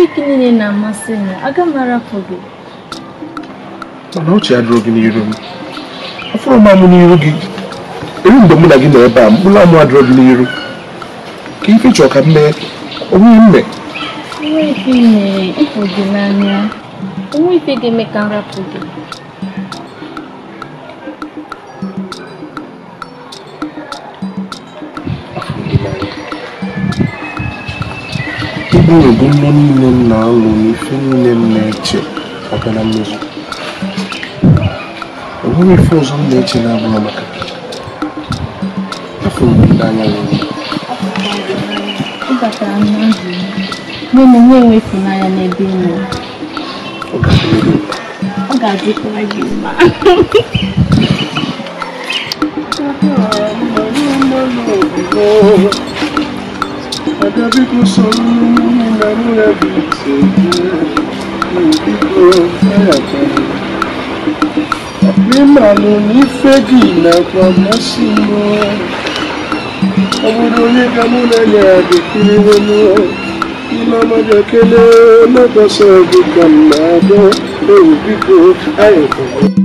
Tọpik niile na-amasị m, aga m arapụ gị. Mana ọchị adịrọ gị n'iru m. afọrọ m amụ n'iru gị. Eri mgbe mụ na gị nọ ebe a, mkpụrụ amụ adịrọ gị n'iru. Ka ife chọọ ka m mee, onwe mme. Onwe ife ị mere, ịfụ gị n'anya. Onwe ife ga-eme ka m rapụ gị. na-ebu ihe niile m na-alụ na niile m na-eche maka na mmezu enweghị ife ọzọ m na-eche na-abụghị maka afọ ndị anya nwere n'ebe Oh, Nabiku sonunu namuna bitete Nabiku fayata Mima luni fegi na kwa masimo Abudoni kamuna le adikiri wono Imama jakele mabasabu kamado Nabiku ayata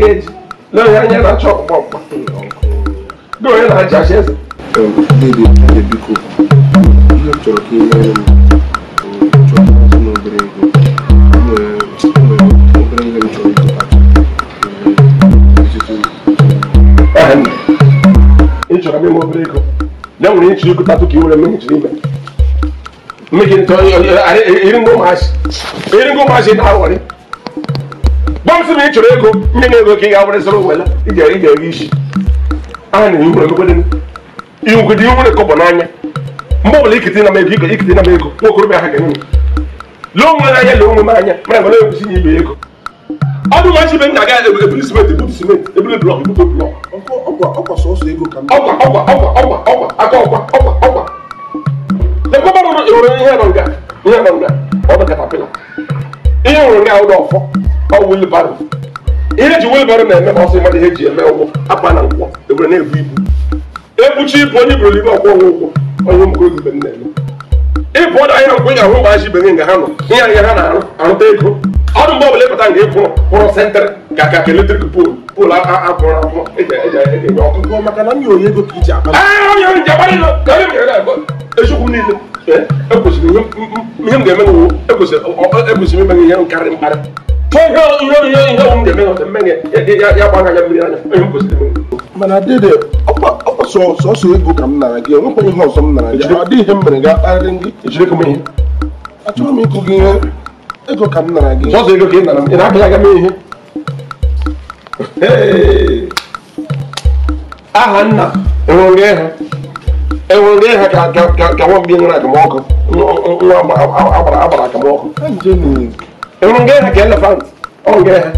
get no yẹn na chop pop no yẹn na ja ṣe. ndéèdè ndéèdè biko ihe m chọrọ ka ị nyere m chọrọ ka m obere ego obere ihe m chọrọ ịzụta ị chọrọ m ime obere ego ya nwere ịchịrị ego tatụ ka ị were mmehichere ime mmehichere ntọ iri ngwa ụmụazị iri ngwa ụmụazị na-awọrị bọmsị na ị chọrọ ego ndị na-ego ka ị ga iji onwe ijere ijere isi aha na ihu igwugide ihu nwere kọbọ n'anya mgbe ọbụla ikite na m na onwe n'anya anya nwere na ihe ihe nwụrụ na ụlọ ọfọ ọ wilbaro ihe eji wilbaro na-eme ọsọ ịmara ihe ji eme ụgbọ akpa na nkwọ ebere na-ebu ibu ebuchi ibu onye bụrụ ibe ọkwọ ụgwọ onye mkpụrụ ibe m na-eme ịbụ ọdụ ahịa nkwụ ya ahụ mgbe aji ibe gị nga ha nọ ihe ahịa ha na-arụta ego ọdụ mgbe ọbụla ịpụta nke ịpụrụ pụrụ sentrị ka ka eletrik poolu poolu akụrụ akwụkwọ e e e maka na ego ka niile ekwesịrị ihe m ga-eme nwu ekwesịrị imeghe ihe nkarị mkparị mana dede ka m nara gị enwekwa ihe m nara gị ọ dịghị ihe m mere ga-akparịrị gị ihe m ịkụ gị ihe ego ka m nara gị ọzọ ego ka ị nara m ị na-abịa aga m ihe aha nna enwere ịha enwere ịha ka ka nwa mgbe nwere agamọkụ nwa agbara agbara agamọkụ enwere nga ịha ka elefant ọ nga ịha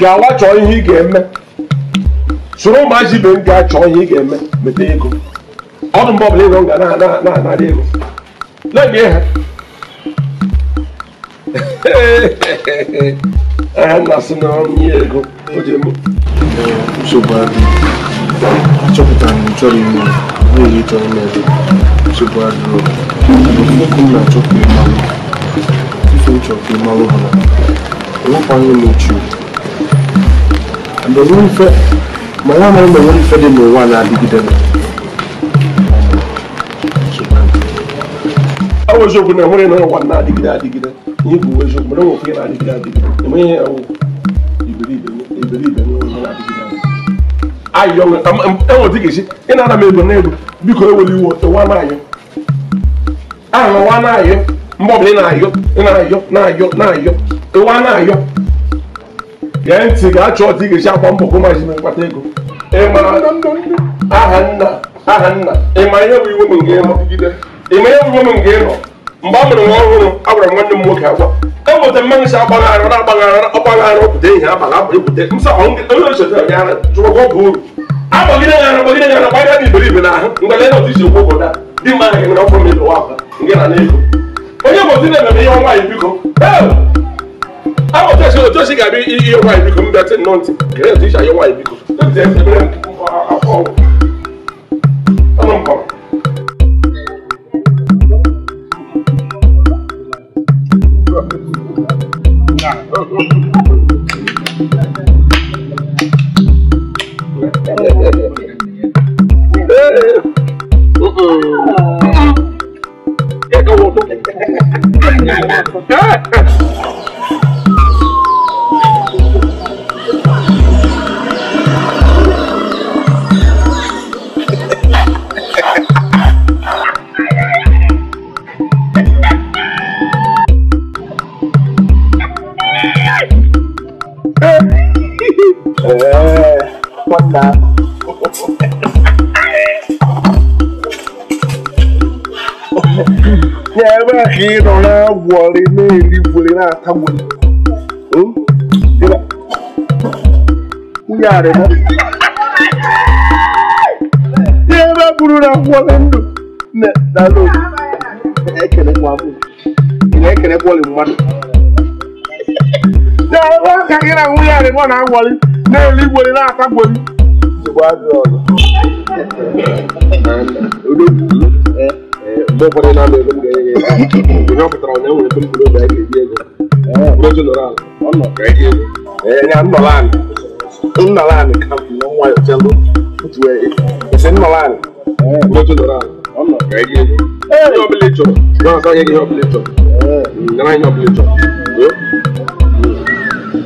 gawa chọọ ihe ị ga-eme soro ụmụazị ibe m gaa chọọ ihe ị ga-eme mete ego ọdụ mgbe ọbụla ego m ga na-adị ego na-enye ha Aha na-asị na ọrụ ihe ego o ji eme. Nsogbu adịghị. Achọpụtara m chọrọ ime n'ihi chọrọ ime nsogbu adịghị. Okwu m na na-adịgide adịgide nye bu wezo muna wo kuye na adi gida adi eme ye ewo ibiri ibeni ibiri ibeni wo muna adi gida adi ayi yɔ ɛwɔ ti kesi ina ana mebe na edo biko eweli wo ewa na ayɔ ahụ wa na ayɔ mbɔbili na ayɔ na ayɔ na ayɔ na ayɔ ewa na ayɔ gee ntị gaa chọọ ọtị ga-esi akwa mbọ kụ mazi mkpata ego ịma e, aha nna aha nna ịma e, ihe bụ iwu m nke ịma ihe bụ iwu m nke ịnọ mgbe a mụrụ nwa ọhụrụ a gwara nwanne m nwoke agwa ka m nweta mmanụ si agbaghara ihe abala abụrụ pụta nke onye osote ya chụrụgwa ọgwụ uru agbagide ya ara gbagide ya ara gbagide dị na ahụ na isi okwu obodo a ndị mma ahụ nwere nke na n'ego onye bụ na ihe ọnwa biko agbọtesi otu osi ga-abịa ihe nwaanyị biko mbịa ti nnọọ biko Hãy subscribe cho kênh Ghiền Mì Gõ Để không bỏ lỡ những video hấp dẫn Ya ebe a ka na-agwọrị na na Ya ebe na agwọrị ndụ na dalo. Ị na-ekele gwọrị mmadụ. Ya ebe a ka n'elu igwere na-akagbori mgbe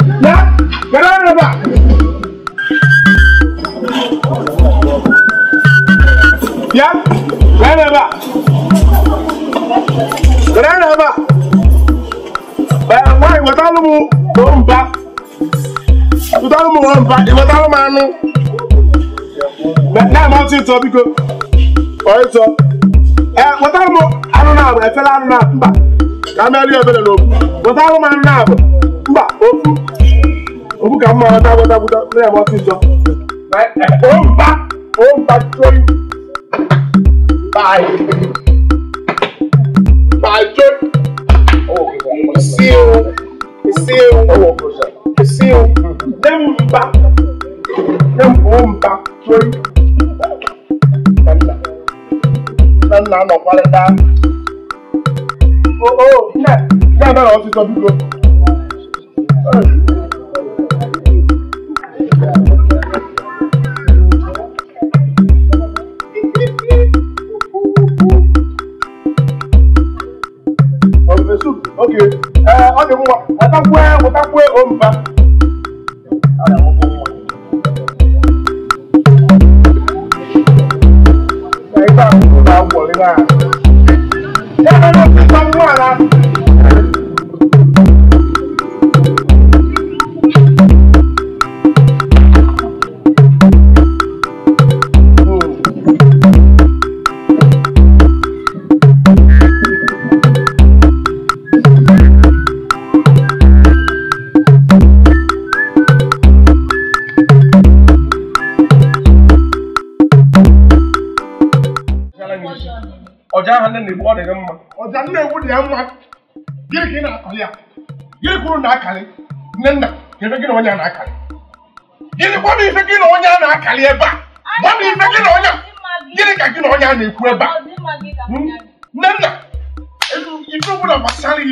na Get out of the back. Yeah? Get out of the back. Get out of the back. But why? What are you going back? What are you going back? What are you going back? Now I'm out in top because all right, so eh, what I'm I don't know. I fell out of that. I'm not here. What I'm not now. But òun kà máa dáwọ́ dábúdá lẹ́yìn wọ́n ti sọ. ó ń bá ó ń bá jóyè báyìí bá jóyè sí o sí o sí o lẹ́mú ń bá lẹ́mú ó ń bá jóyè. Nana nọ kwalẹ daa. O o, nne, nne abẹ́rẹ́ ọ̀sìn sọ bí gbó oge ọ dị mma wetakwe wetakwe omba Thank you. ya mma gịnị ka ị na-akọlị ya gịnị kwuru na akarị nne nna kedu gị na onye a na akarị gịnị gbanụ ife gị na a na akarị ebe a gbanụ ife gị na onye gịnị ka gị na onye a na-ekwu ebe a nne nna ife ọbụla gbasara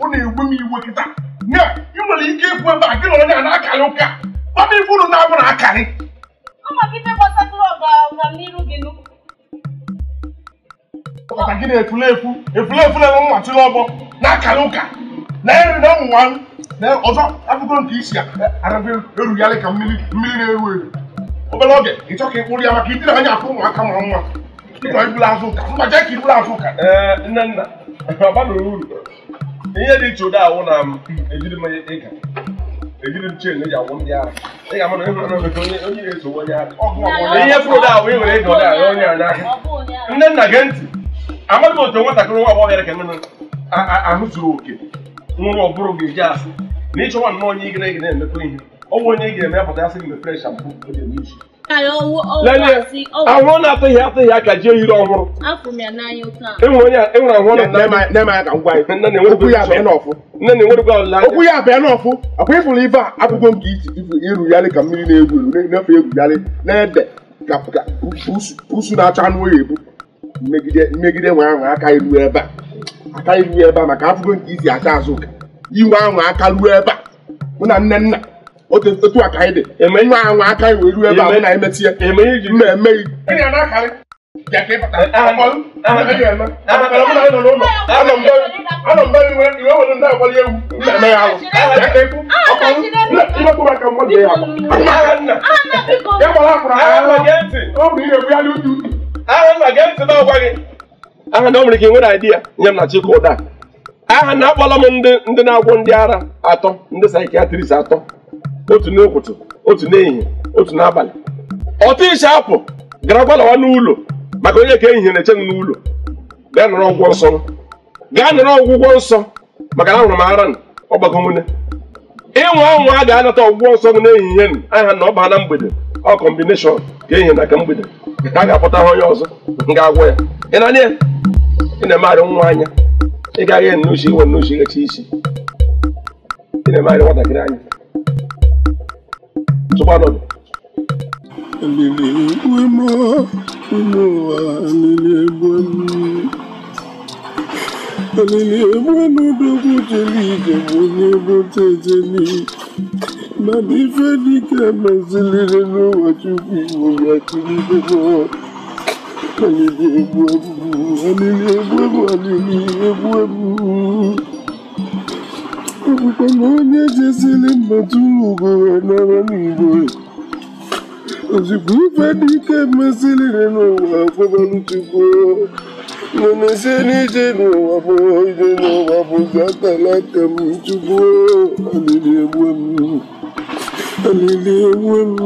ọ na-egbu m iwe kịta ị nwere ike ikwu ebe a gị na onye a na akarị ụka gbanụ ife na-abụ na akalị maka gị na-efulefu efulefu na-enwe mmachi n'ọgbọ na-akara ụka na-eri na ụmụnwa na ọzọ abụgo nke isi arabe erugharị ka mmiri mmiri na-eru eru obere oge ị chọ ka ị kpụrụ ya maka idiri anya afọ ụmụaka mara nwa ịchọ iburu azụ ụka mba jee ka iburu azụ ụka nne nna ọbanụrụ uru ihe dị iche ụdị awụ na ejiri mmanya ịga ejiri m chen eji agwụ ndị ara ị ga-ama na ịhụrụ na onye onye na-esogbu onye ara ihe fụrụ ụdị awụ ị were ịga ụdị ara onye ara nne nna gee ntị amaghị m otu nwatakịrị nwa agbọghọ ka nne ahụ zuru oke nwụrụ ọ bụrụ ga-eji asị na ịchọwa nnọọ onye na ịgara emekọ ihe ọ bụ onye ị ga-eme asị gị mepere shampoo oge n'izu ahụhụ na-atụghị atụghị aka ọhụrụ enwere okwu ya n'ọfụ akwa ịfụrụ ibe a nke iru yarị ka mmiri na-egwu eru egwu yarị na ede usu na-acha anụ oyi ebu mmegide mmegide nwe ahụ aka iru ebe a aka iru ebe a maka afụgo nke izi acha azụ inwe ahụ aka ruo ebe a mụ na nne nna otu a ka anyị dị eme nwe ahụ aka iwe ruo ebe a eme na emetie mma emeghị Ọ bụ ihe bụ ya n'utu aha nna gee ntị na ọgwa gị aha na ọ nwere ike nwere idea nye m na chike ụda aha na akpọla m ndị ndị na-agwụ ndị ara atọ ndị psychiatrist atọ otu n'ụtụtụ otu n'ehihie otu n'abalị ọtụ ishi apụ gara gbalawa n'ụlọ maka onye ka ehihie na-eche m n'ụlọ gaa nọrọ ọgwụgwọ nsọ gaa nọrọ ọgwụgwọ nsọ maka na ahụrụ m ara ọgbakọ nwune ịnwa anwa a ga-anata ọgwụgwọ nsọ gị n'ehihie aha na ọ na mgbede ọ kọmbineshọn ka ehihie na ka mgbede ka a ga-akpọta ha onye ọzọ nga agwọ ya ị nọ na ị na-emegharị nwa anya ị gaghị nnuchi iwe nnuchi ghechi isi ị na-emegharị nwatakịrị anya tụkwa nọdụ Alele egwe mọ ụmụ ụwa jeli ije bụ onye bụ tejeli Mami fẹ́ ní kẹ́ ẹ máa ṣe lérè lọ́wọ́ tó fi ìwòye àti nílé náà. Ẹni ní ewu ẹ̀bù, ẹni ní ewu ẹ̀bù, ẹni ní ewu ẹ̀bù. Òkùnkùn náà ní ẹ̀jẹ̀ sí ilé mọ̀túrù ògbòrò ẹ̀nà ara ní ìbò rẹ̀. Òsìkú fẹ́ ní kẹ́ ẹ máa ṣe lérè lọ́wọ́ àfọ́bọ́lù ti kú ọ́. Mọ̀nà ṣe ní ìdènà wàfọ̀ ìdènà Hallelujah.